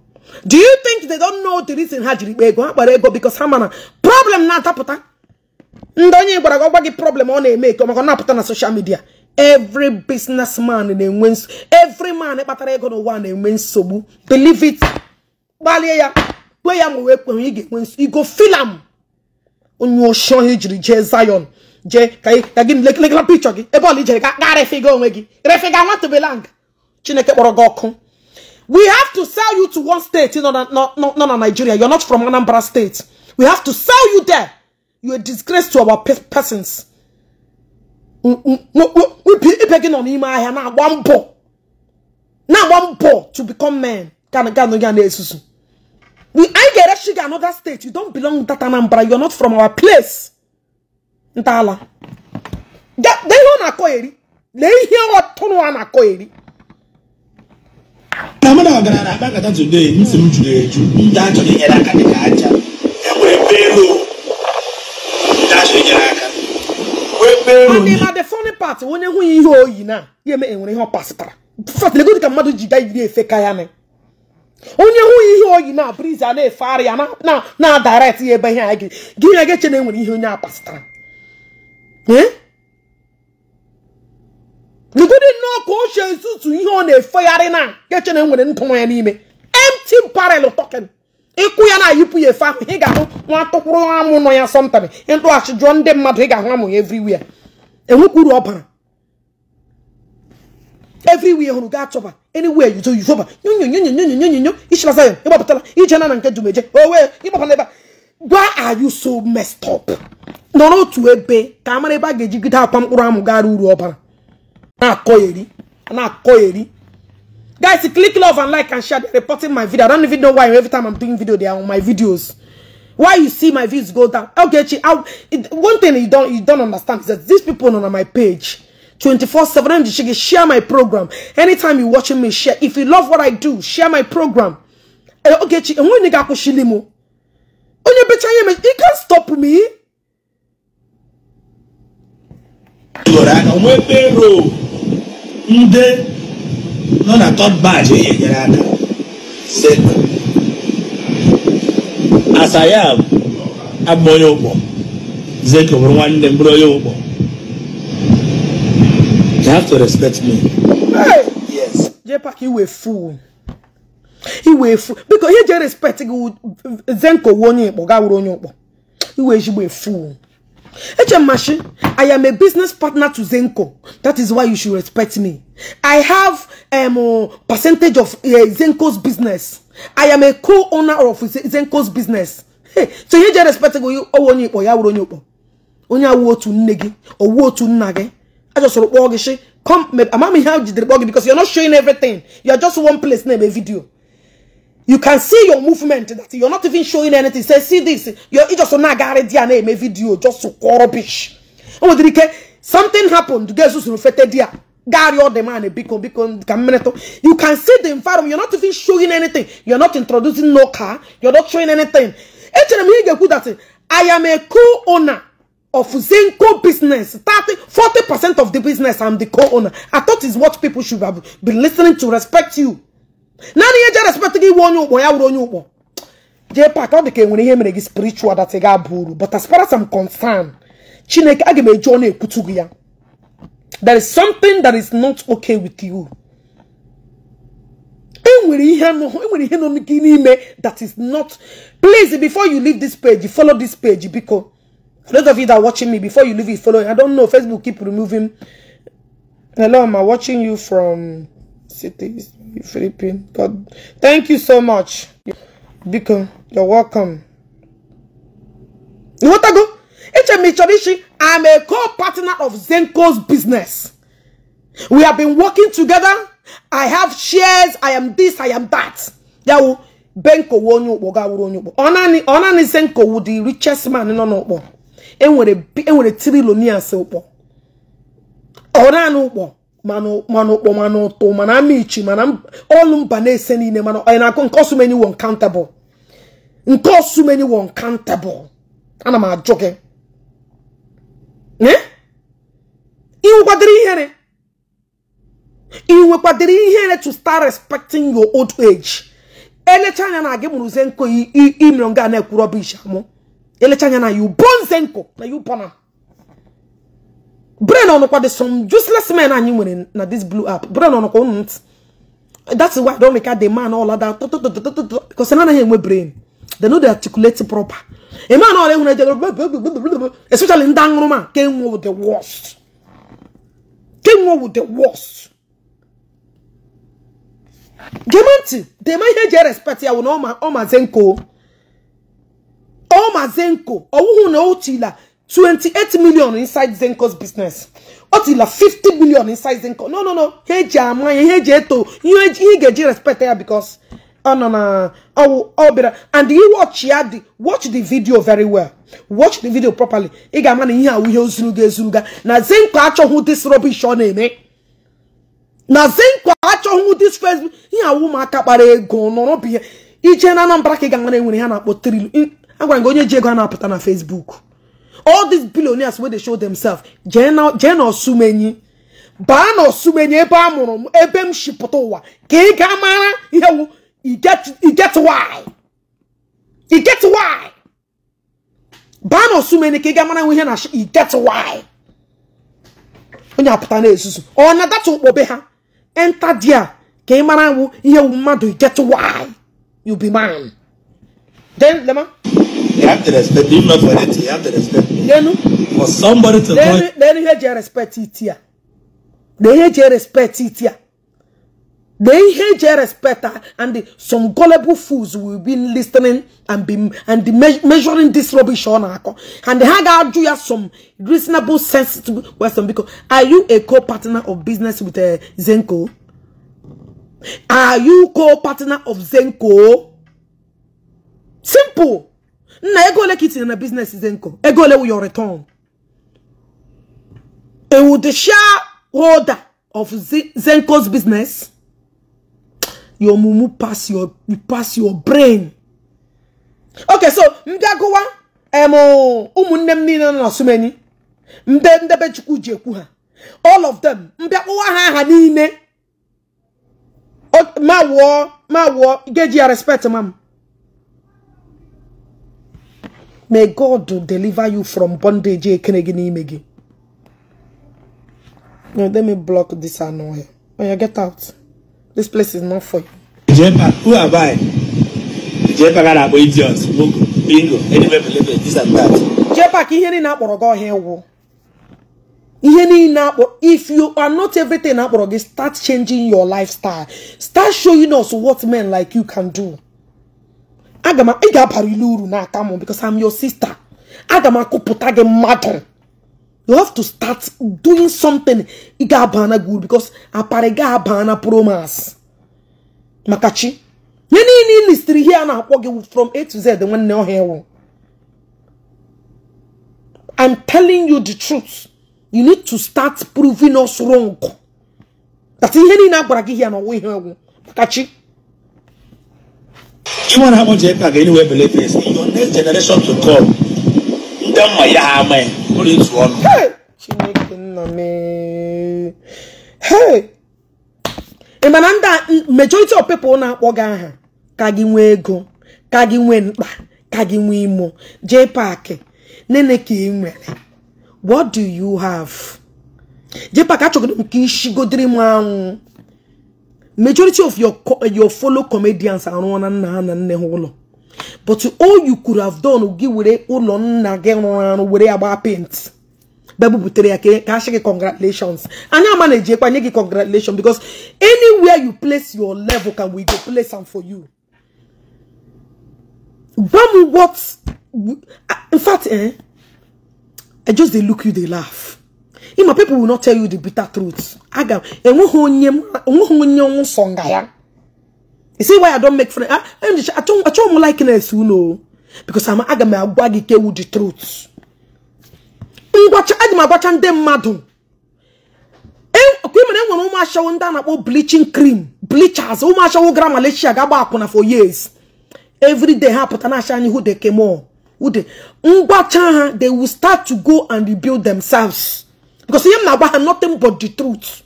do you think they don't know the reason ha jiri kpa ego ha gbara ego because ha mana problem na ataputa ndị onye gwara gị gị problem ọ na-eme eke maka ọ na-apụta na social media every man na-enwe nsogbu every man kpatara ego n'ụwa na-enwe nsogbu believe it gbalie ya gwe ya ma wee kwenwe ị ga-enwe nsogbu igo filam onye oshi ọhịa jiri jee Zion jee ka gị lekịla pichọ gị ebe ọla ijere ga gị onwe gị refịga nwatụbelang Chineke kpọrọ gị ọkụ we have to sell you to one state nọ na Nigeria you're not from Anambra state we have to sell you there you're a disgrace to our persons mm, mm, mm, ibe gị nọ n'ime ahịa na-agba mbọ na-agba mbọ to become men ganụ ya na we anyị ga-erechi gị another state you don belong that Anambra are not from our place ntọala lee ihe ọ na-akọ eri lee ihe ọtụnụ a na-akọ eri na na ọgaranya akpakọta today ntị m juru eju ndị achọrọ inyere aka dịka aja enwere pelo ndị achọrọ inyere aka adịla the funny part onye nwunye ihe oyi na ya eme enwere ihe ọ pasịtara fatlego dịka mmadụ ji gaa iri efe ka ya na onye nwunye ihe oyi na briz a na-efegharị ya na na direct ya ebe ihe anyị gị gị na-eche na enwere e ihe onye a pasịtara ee lugodi nnọọ ka o chie ntutu ihe ọ na-efegharị na nkeche na nwere nkụ nwa ya n'ime empty parel token ịkụ ya na-ayịpụ ya efe ahụ ị ga-ahụ nwa tụkwụrụ amụ nọ ya sọmtami ịtụghachi jụọ ndị mmadụ ị ga-ahụ amụ ya everywhere enwekwa uru ọ bara hụrụ gaa chọba anywhere yuzo yuzoba nyonyonyonyonyonyonyo ichilasa ya ịgbapụtala ije na na nke jumeje owe ịgbapụtala ebe why gwa you so messed nọ n'otu ebe ka amara ebe a ga-ejigide akwa mkpụrụ amụ gara uru ọbara Now Anako eri. Anako eri. Guys, click love and like and share. They're reporting my video. I don't even know why every time I'm doing video, they are on my videos. Why you see my views go down? Okay, I'll, it, one thing you don't you don't understand is that these people on my page, 24-7, share my program. Anytime you're watching me, share. If you love what I do, share my program. Eh, okay, Chi, and when you you can't stop me. ndị nọ na tọd batch enyere aka asaya agba onye ụkpọ zeko bụrụ nwanne m bụrụ onye ụkpọ you have to respect biko ihe je respect gị zenko onye onye ụkpọ iwe ezigbo efu HM Mashi, I am a business partner to Zenko. That is why you should respect me. I have um, percentage of uh, Zenko's business. I am a co-owner of Zenko's business. Hey, so you just respect go owo oh, ni ipo ya wuro ni ipo. Onye awu otu nne gi, owu otu to gi. I just want to come, I'm not here because you're not showing everything. You're just one place, name a video. You can see your movement that you're not even showing anything. Say, see this. You're just on a name a video, just so rubbish. Oh, did something happened? Jesus reflected dia Gary all the man a biko. beacon camminato. You can see the environment. You're not even showing anything. You're not introducing no car. You're not showing anything. I am a co-owner of Zinco business. 30, 40% of the business I'm the co-owner. I thought is what people should have been listening to respect you. naanị ihe je respect gị iwe onye ya wụrụ onye ụkpọ jee pak ọ dị ka enwere ihe mere gị spiritual that ga-aba but as far as I'm concerned chineke aga m eji ọ ekwutu gị ya there is something that is not okay with you enwere ihe enwere ihe nọ e n'ime that is not please before you leave this page follow this page biko those of you that are watching me before you leave it follow I don't know Facebook keep removing hello am I watching you from cities, Philippines. God, thank you so much. Biko, you're welcome. You want to go? HM Mitsubishi, e I'm a co-partner of Zenko's business. We have been working together. I have shares. I am this. I am that. Yawu, Benko wonyo boga wonyo bo. Onani, onani Zenko wudi richest man No no bo. Enwere, enwere trilonians bo. Onani bo. mana ụkpọ mana ụtụ mana amichi mana ọlụ mba na-ese niile mana anyị na-akụ nke ọsụmeni won countable nke ọsụmeni won countable ana m ajụ gị ịnwekwadịrị eh? ihere ịnwekwadịrị ihere to start respecting your old age elecha anya na gị mụrụze nkụ imere nga na ekwuru rọbish amụ elecha anya na yu bonze Zenko na yu bọna brain ọnụkwa the some useless men anyị nwere na this blue app brain ọnụkwa ụnụ ntị that's why don make the man all that because none of anaghị enwe brain they no dey articulate proper a man ọla ehun ejere especially ndị aṅụrụma ka enwe with the worst ka enwe with the worst gema ntị dema ihe eji respect ya wụ na ọ mazenko ọ mazenko ọwụhụ na o chila 28 million inside Zenco's business ọ tila 50 million inside Zenco no no no ihe eji ama ya ihe eji eto ihe ị ga-eji respect ya because ọ nọ na ọwụ ọ bịara and you watch ya the watch the video very well watch the video properly ị ga-ama na ihe awụ ihe ozuruga ezuruga na Zenco achọghị this rubbish ọ na-eme na Zenco achọghị this Facebook ihe awụ ụmụaka kpara ego nọrọ bụ ihe ije na Anambra ka ị ga-ama na enwere ihe a na-akpọ trilu agwara gị onye ji ego a na-apụta na Facebook all these billionaires wey dey show themselves jane osumenyi baa na osumenyi ebe a mụrụ m ebe m shipụta ụwa ka ị ga mara ihe wu iget why get why baa na osumenyi ka ị ga mara ihe na iget why onye apụta na-ezuzu ọ na-adata ụkpọbe ha enter there ka ị mara wu ihe wu mmadụ iget why you be man then lema You have to respect me. Not for you have to respect me. Then, for somebody to then, Then you have to respect it here. They hate your respect it here. They hate your respect and some gullible fools will be listening and be and me measuring this rubbish on And they had to you some reasonable sense to Western because are you a co-partner of business with uh, Zenko? Are you co-partner of Zenko? Simple. nna ego ole ka itinye na biznes dị nkọ ego ole wụ your return ewu the shareholder of zenko's business your mumu pass your you pass your brain okay so mbịa gụwa ụmụnne m niile nọ na sumeni mbe ndebe chukwu ji ekwu ha all of them mbịa kpụwa ha aha niile ma wụọ ma wụọ geji ya respect mam may god deliver you from bondage ekene n'ime gi. no let me block this annoy when oh, you get out this place is not for you jepa who am i jepa ka na-akpọ idiot bingo anywhere believe this and that jepa ka ihe niile akpọrọ gị ọhịa ịwụ ihe niile if you are not everything akpọrọ gị start changing your lifestyle start showing us what men like you can do aga m ị ga-abara uru n'aka m because I'm your sister aga m akụpụta gị mmadụ you have to start doing something ị ga-abana gị uru because apara ga-abana promas maka chi ihe niile ilistiri ihe a na-akpọ gị from A to Z nwanne ọhịa ewu I'm telling you the truth you need to start proving us wrong that ihe niile a gwara gị ihe na ọwa ihe ewu maka chi even how much you can anywhere believe is your next generation to come ndị mma ya ama ya ụlọ ịtụ ọnụ chineke nna me hey! mana ndị majority of people na-akpọ aha ka gị nwee ego ka gị nwee mkpa ka gị nwee imo jee paakị nene ka ị nwere what do you have jee paakị achọgoro nke ishigodiri m anwụ majority of your eh, your fellow comedians are on and on and on but all you could have done give with ụlọ nna gị rụrụ were agba paint bebụ butere ya ka asị gị congratulations anyị ama na-ejekwa nye gị congratulations because anywhere you place your level can we go place am for you gwa m what ah, in fact eh, I just dey look you dey laugh ịma people will not tell you the bitter truth aga enweghị onye enweghị onye ọnwụ sọ nga ya you see why I don't make friends achọghị m likeness unu because aga m agwa gị kewu the truth ngwacha adị m agwacha ndị mmadụ e, kwemere enwere ụmụ ashawo ndị a na-akpọ bleaching cream bleachers ụmụ ashawo gara Malaysia ga-agba akwụna for years every day ha pụta na-acha anyị who they came on who ngwacha ha they will start to go and rebuild themselves because him na have nothing but the truth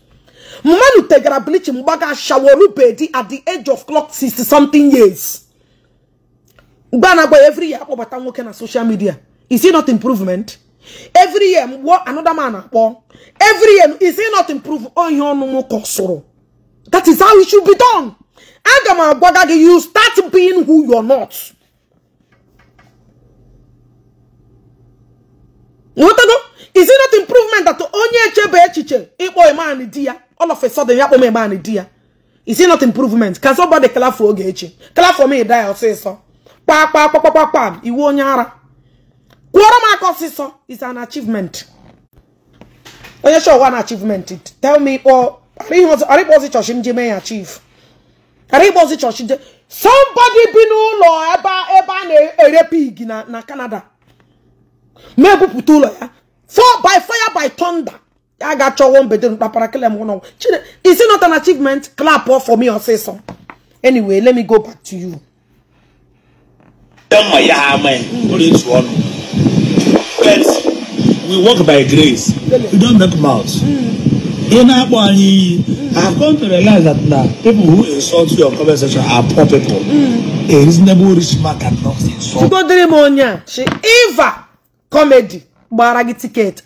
mama nu tegara bleach mgbaga shaworu bedi at the age of clock 60 something years gbana every year akpọbata nwoke na social media is it not improvement every year what another man akpọ every year is it not improve ihe no more sụrụ that is how it should be done aga m agwaga you start being who you're not nghọtago is it not improvement that onye echebe echiche ikpo iman di ya all of a sudden ya kpọm iman di ya is it not improvement can somebody clap for oge echi clap for me die ọsịsọ kpa kpa kpa kpa iwu onye ara kwụọrọ m aka is an achievement onye show one achievement tell me ikpo arịkpọzi chọọchị m ji mee ya chief arịkpọzi chọọchị je somebody bi n'ụlọ ebe a na-ere na Canada ma ebupụta ụlọ ya For by fire, by thunder. I got your one bedroom. Is it not an achievement? Clap off for me or say so. Anyway, let me go back to you. But we walk by grace. We don't make mouths. Mm. In I have come to realize that now people who insult your conversation are poor people. Mm. A reasonable rich man cannot insult. She got the Eva comedy. gbara gị tiketi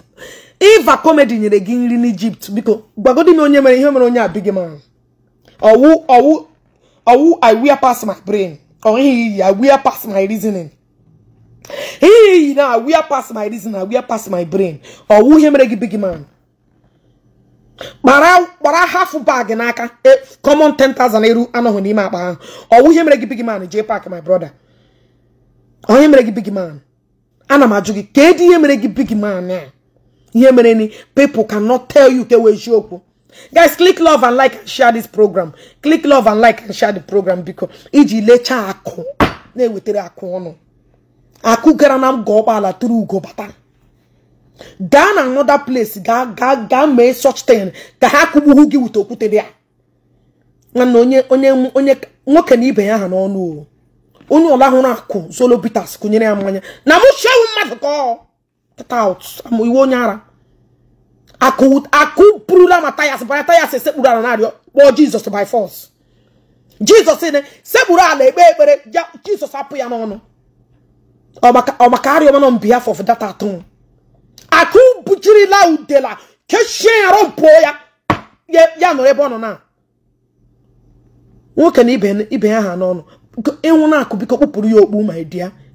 iva comedy nyere gị nri n'Ijipt biko gbagodi m onye mere ihe mere onye abịghị m ọwụ ọwụ ọwụ I wear pass my ọwụ ihe mere gị big man kpara bag n'aka e, common 10,000 anọghị n'ime akpa ahụ ọwụ ihe mere gị big man jee big man ana m ajụ gị edi ihe mere gị big man a ihe mere ni people cannot tell you ka wee eziokwu guys click love and like and share this program click love and like and share the program biko iji lechaa akụ na-ewetara akụ ọnụ akụ gara na mgọ ụgbọala tụrụ ugo bata gaa na another place gaa mee such thing ka ha kụgbuhu gị wute okwute dị ya nwanne onye onye nwoke na ibe ya ha n'ọnụ o onye ọla hụrụ akụ solo bitas kụnyere ya mmanya na mụ mmadụ ka iwe onye ara akụ pụrụla ma tayas bara tayas esekpuru ala narịọ kpọọ jizọs by force jizọs ne sekpuru ala ekpe ekpere jizọs apụ ya n'ọnụ ọmaka arịọmanọ mbiafọ of data atọ akụ bujirila udela kechie ya rọpụọ ya ya nọrọ ebe ọ nọ na nwoke na ibe ya ha n'ọnụ ịnwụ na-akụ biko kpụpụrụ ya okpu my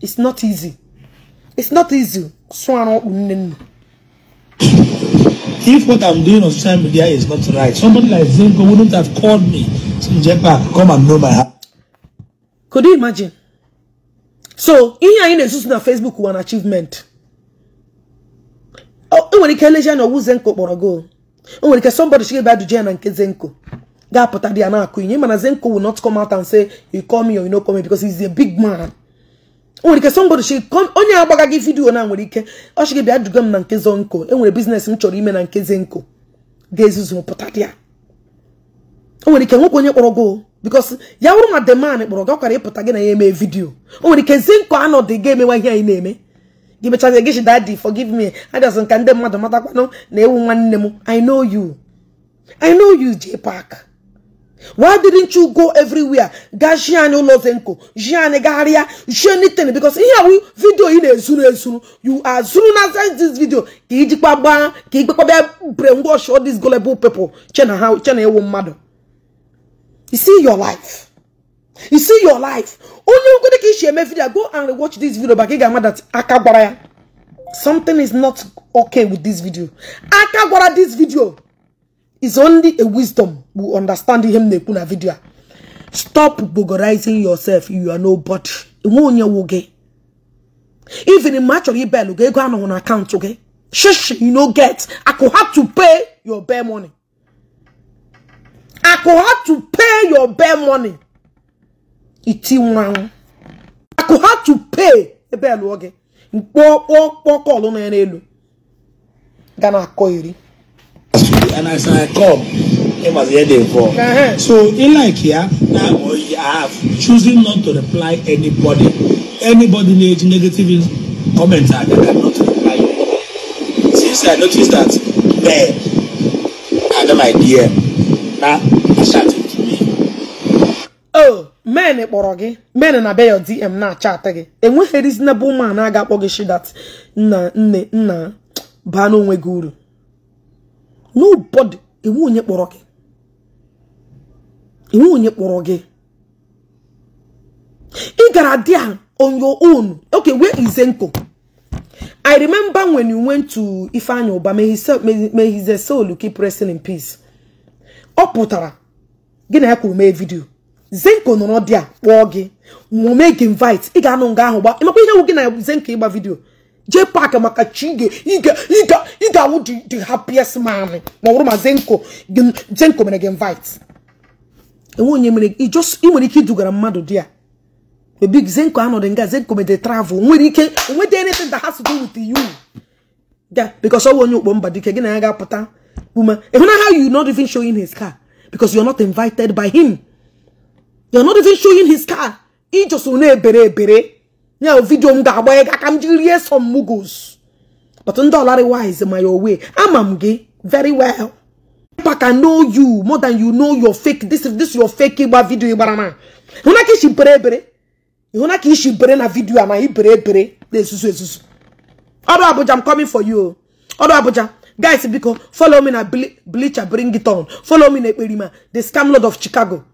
it's not easy it's not easy sụọ arụ okpu nne nne If what I'm doing on social media is not right, somebody like Zenko wouldn't have called me to Japan, come and know my heart. Could you imagine? So, ihe anyị na-ezuzu na Facebook wụ an achievement. O oh, nwere ike eleji anya ọwụ Zenko kpọrọ go. O nwere ike somebody chiga ebe na nke Zenko. ga-apụta dị ya na-akụ inye mana Zenko will not come out and say you call me or you no call me because he's a big man nwere ike somebody she onye agbaga gị vidio na nwere ike ọ sị gị bịa duga m na nke Zonko enwere biznes m chọrọ ime na nke Zenko ga-ezuzu pụta dị ya o nwere ike nwoke onye kpọrọ gị because ya wụrụ ma deman kpọrọ gị ọ kwara ịpụta gị na ya eme vidio o nwere ike Zenko anọdụ ga-emewa ihe anyị na-eme gị mechazie gị dadi forgive me adịazụ nka ndị mmadụ matakwanụ na ewu nwanne m I know you I know you J Park Why didn't you go everywhere? Gajian Olozenko, Jian Garia, anything because here we video in a zulu zulu. You are zulu as this video. Kijikwa ba, kijikwa be brainwash all these gullible people. Chena how chena won't matter. You see your life. You see your life. Only you go to share my video. Go and watch this video. But get that akabara. Something is not okay with this video. Akabara this video. is only a wisdom will understand ihe m na-ekwu vidio a stop bogorizing yourself you are nobody enwe onye wụ gị even ma chọrọ ibel gị ego anọghị na akaụntụ gị shishi you no get I could have to pay your bare money I could have to pay your bare money iti nwụrụ anwụ I could have to pay ebe elụọ gị mkpọkpọkọlụ na ya n'elu ga na akọ iri and as i come him as hear dey fall uh-huh. so he like here now i have choosing not to reply anybody anybody need negative comment i can not reply since i notice that there i don my dear na i shout it to me. oh men kpọrọ gị men na be your dm na-achatị gị enweghị reasonable man a ga-akpọ gị shidat nna nne nna baa n'onwe gị uru nobody iwu onye kpọrọ gị iwu onye kpọrọ gị ị gara there on your own okay wee ize Zenko I remember when you went to Ifeanyi Uba may soul, keep resting in peace ọ pụtara gị na ya kwuru mee vidio Zenko nọrọ dị a kpọọ gị nwome gị invite ị ga-anụ nga ahụ gba ịmakwa ihe wụ gị na Zenko ịgba vidiyo jee paakị maka chige ị ga the happiest man ma ọ bụrụ ma zenko zenko mere gị invite enwe onye mere ị nwere ike idugara mmadụ di a e big zenko anọdụ nga zenko mede travel nwere ike nweta anything that has to do with you ga because ọwụ onye ukpo mba dike gị na ya ga-apụta ume ịhụna how you not even showing his car because are not invited by him you're not even showing his car ị e na-ebere ebere ya vidio m ga-agba ya aka m jiri rie some muggles but ndị ọlarị wise my ya owe ama m gị very well Papa can know you more than you know your fake this this your fake ịgba vidio ịgbara ma hụna ka ishi bere ebere ịhụna ka ishi bere na vidio a na ibere ebere na-esusu esusu ọrụ Abuja I'm coming for you ọrụ Abuja guys biko follow me na bleacher bring it on follow me na Ekperima the scam lord of Chicago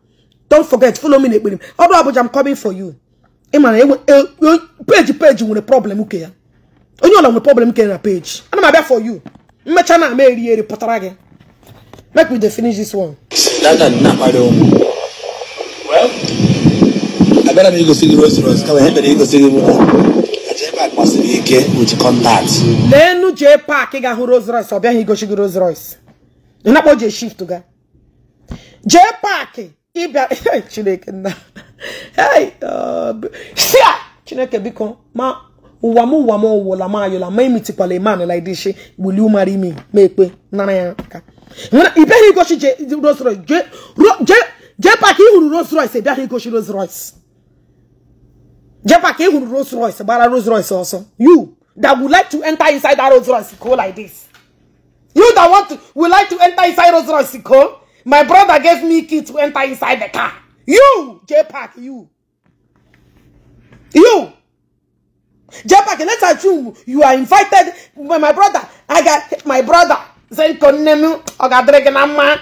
don't forget follow me na Ekperima ọrụ Abuja I'm coming for you ịmana o que nwere problem uke ya onye ọla nwere problem uke na peji ana m abịa for you mmecha na ama eri eri pụtara gị make we dey finish this one. data nna akpari ụmụ abịara m igosi gị rose rose kama o igosi gị mụta jepak gbasiri ike with contact. leenu jee paakị ga hụ Rolls royce ọ bịaghị igosi gị rose royce ị não akpọ jee shift ga J Park. Eh? ịbịa chineke nna uh, chineke biko ma ụwa m ụwa m ụwụla m ayọla ma emitikwala iman like this gbuli ụmara imi ma ekpe nara ya aka ịbịaghị igochi Rolls Royce jee pak ịhụrụ Rolls Royce ịbịaghị igochi Rolls Royce jee pak ịhụrụ Rolls Royce gbara Rolls Royce ọsọ you that would like to enter inside that Rolls Royce go like this you that want to would like to enter inside Rolls Royce go my brother gave me key to enter inside the car. You, j you. You. J-Pack, let's assume you are invited by my brother. I got my brother. Zenkonemu, Ogadreganama,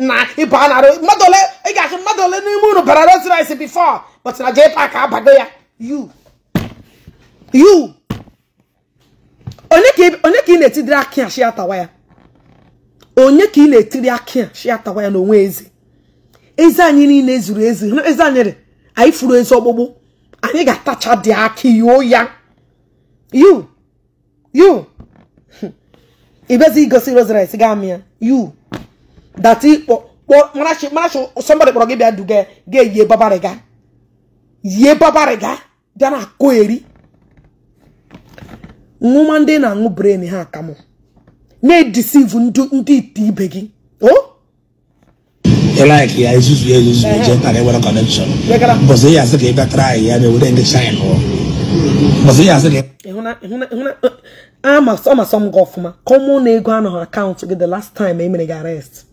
na Ibanaro, eh, Madole, I got Madole Nimuno, but I don't rice before. But now J-Pack, Abagoya, you. You. Only keep, only keep in the Tidra Kiashiata wire. onye ka ị na-etiri aka ya shịatawa ya n'onwe eze eze anyị niile zuru ezi eze anyị anyị furu ezi ọgbụgbụ anyị ga-atacha dị aka yoo ya you you ibezi igosi rosaris ga amị ya you dati marachi somebody kpọrọ gị bịa duga ga-eyie babariga yie babariga bịa na akụ eri nwụma ndị na-aṅụ bren ha akamụ na-edisivu ndị ite ibe gị o like na ewere connection ya asị ka na-ewere ndị gị ọfụma na ego anọghị akaụntụ gị the last time emere gị arrest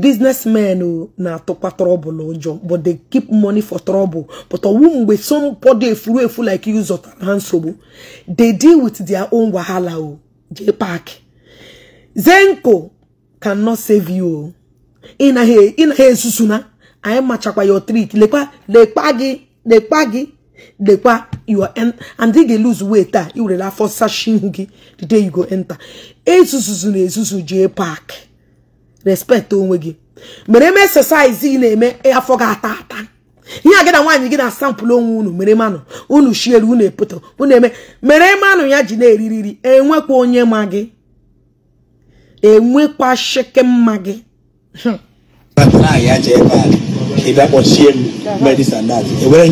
businessmen na-atụkwa ụjọ but they keep money for trouble but ọwụ mgbe somebody efuru like you zọtara ha nsogbu they deal with their own wahala jay park zenko cannot save you ị na-ha na anyị machakwa your trick lekwa lekpa gị lekpa gị lekwa your and ị lose weight a iwerela afọ sashi ihu gị the day you go enter esususu na esusu jay park respect onwe gị mere eme exercise ị na-eme afọ gị ata ihe a gị na nwaanyị gị na asampụlụ onwe unu mere manụ unu shiere unu epoto unu eme mere manụ ya ji na-eririri enwekwa onye ma gị enwekwa sheke mma gị ịbịa kpọchie m e onye ya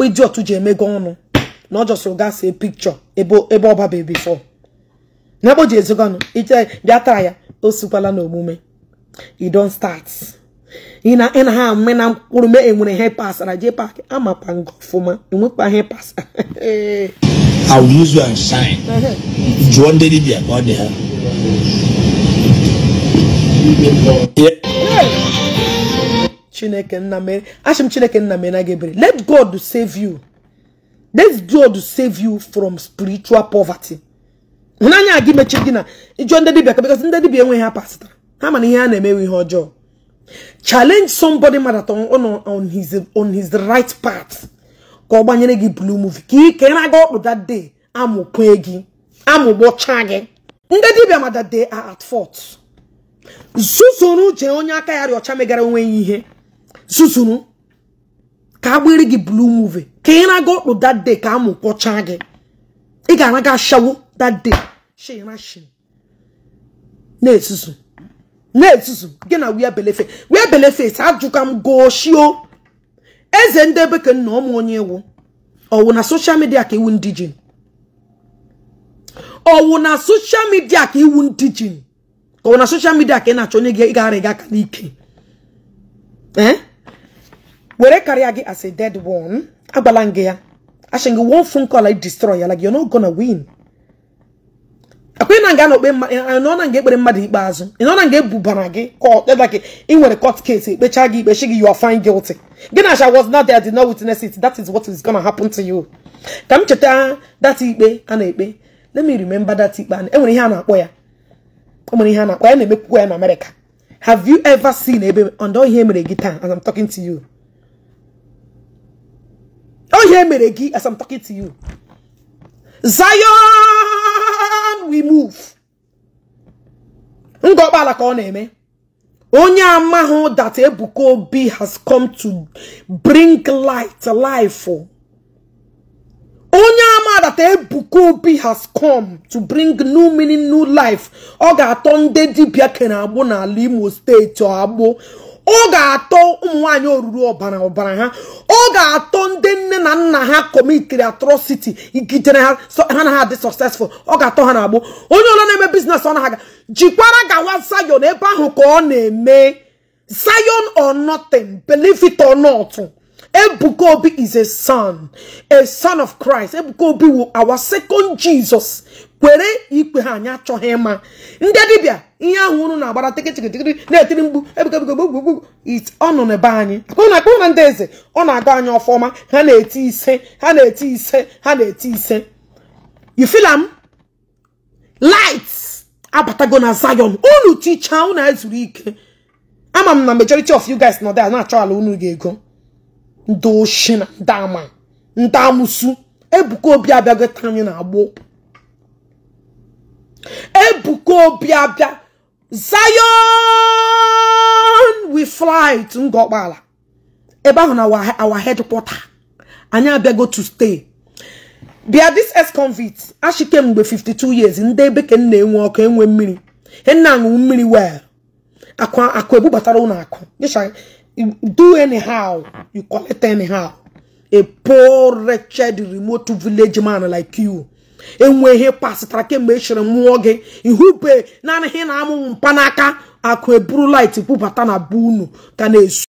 ya dị otu ji emego ọnụ na ọ jọsịrị gasị pikchọ ebe ọba before n'ebe o ji ezoganụ iche bịa taa ya o sikwala n'omume you don start ị na ị na ha mme na mkpụrụ mee enwere ihe pasara jee paakị amapa nga ọfụma enwekwa ihe pasara I will use you and shine. Jụọ ndị dibịa ka ọ dị ha. Chineke nna mere achị m Chineke nna mere na gị ebere let God save you let God save you from spiritual poverty. hụnanya gị mechie gị na ịjụọ ndị dibia ka ndị dibia enweghị ha pasịtara ha mana ihe a na-emewe ihe ọjọọ challenge somebody mmadụ on his on his right part ka ọ gbanyere gị blue movie ka ike na-aga ọkpụ that day amụkwe gị amụgbọcha gị ndị dibia ma that at fort zuzuru jee onye aka ya rịọcha megara onwe ya ihe zuzuru ka agbịrị gị blue movie ka ị na-aga ọkpụ that day ka amụkpọcha gị ị ga-anaga shawo that day shirashin na-ezuzu na-ezuzu gị na wia belefe wia belefe ajụka m goshio eze ndị ebe ka nna ụmụ onye iwu ọwụ na soshal midia ka iwu ndị jin ọwụ na soshal midia ka iwu ndị jin ọwụ na soshal midia ka ị na-achọ onye gị gara gị aka n'ike were karịa gị as a dead one agbala gị ya asị gị phone call I destroy ya like you're not gonna win ekwenye na nga na-ekpe nọ na nga ekpere mmadụ ikpeazụ ị nọ na nga ebubara gị kpeba gị ị nwere court case ekpecha gị ikpechi gị you are gilti guilty gị na I was not there did not witness it that is what is gonna happen to you ka m cheta that ikpe a na-ekpe let me remember that ikpe enwere e ihe a na-akpọ ya enwere ihe a na-akpọ ya na-emekwukwa ya na America have you ever seen ebe ọndọ ihe mere gị taa as I'm talking to you ọ ihe mere gị as I'm talking to you Zion hand we move ka ọ na-eme onye amahụ that Ebuka Obi has come to bring light life ama that Ebuka Obi has come to bring new meaning new life ọ ga-atọ nde dibia kere agbụ n'ala Imo steeti agbụ ọ ga-atọ ụmụ nwaanyị oruru ọbara ọbara ha ọ ga-atọ ndị nne na nna ha kọmitiri atrocity gidere ha ha adị successful ọ ga-atọ ha na-agbụ onye ọla na-eme bizines ọ na-aga jikwara gawa zayon ebe ahụ ka ọ na-eme zayon or nothing ọnọtụ ebukobi or is a son a son of Christ Ebuka wu our second Jesus kwere ikpe ha anyị achọghị ịma ndị dibịa ihe ahụ unu na-agbara tikịtịkịtịkịtị na-etiri mgbu ebikebikebikebikwu it ọnụ n'ebe anyị akpụna na ndị eze ọ na-aga anyị ọfọma ha na-eti ise ha na-eti ise ha na-eti ise you feel abatago na Zion unu ticha unu ezuru ike ama m na majority of you guys nọ there na-achọ ala unu ga-ego ndị oshi na ndị ama ndị amụsu ebuka obi abịago taa anyị na-agbụ ebuka obi abịa zion we fly to ngọkpala ebe ahụ na our headquarter anyị abịago to stay bịa this ex convict ashike mgbe 52 years ndị ebe ka nna enwe ọkụ enwe mmiri nna aṅụ mmiri well akụ akụ ebubatara ụlọ akụ do anyhow you collect anyhow a poor wretched remote village man like you enwe ihe pasịtara kemgbe ị e chere mmụọ gị ihupe naanị ihe na-amụ mkpanaka akụ eburu light bubata na be unu ka na-esu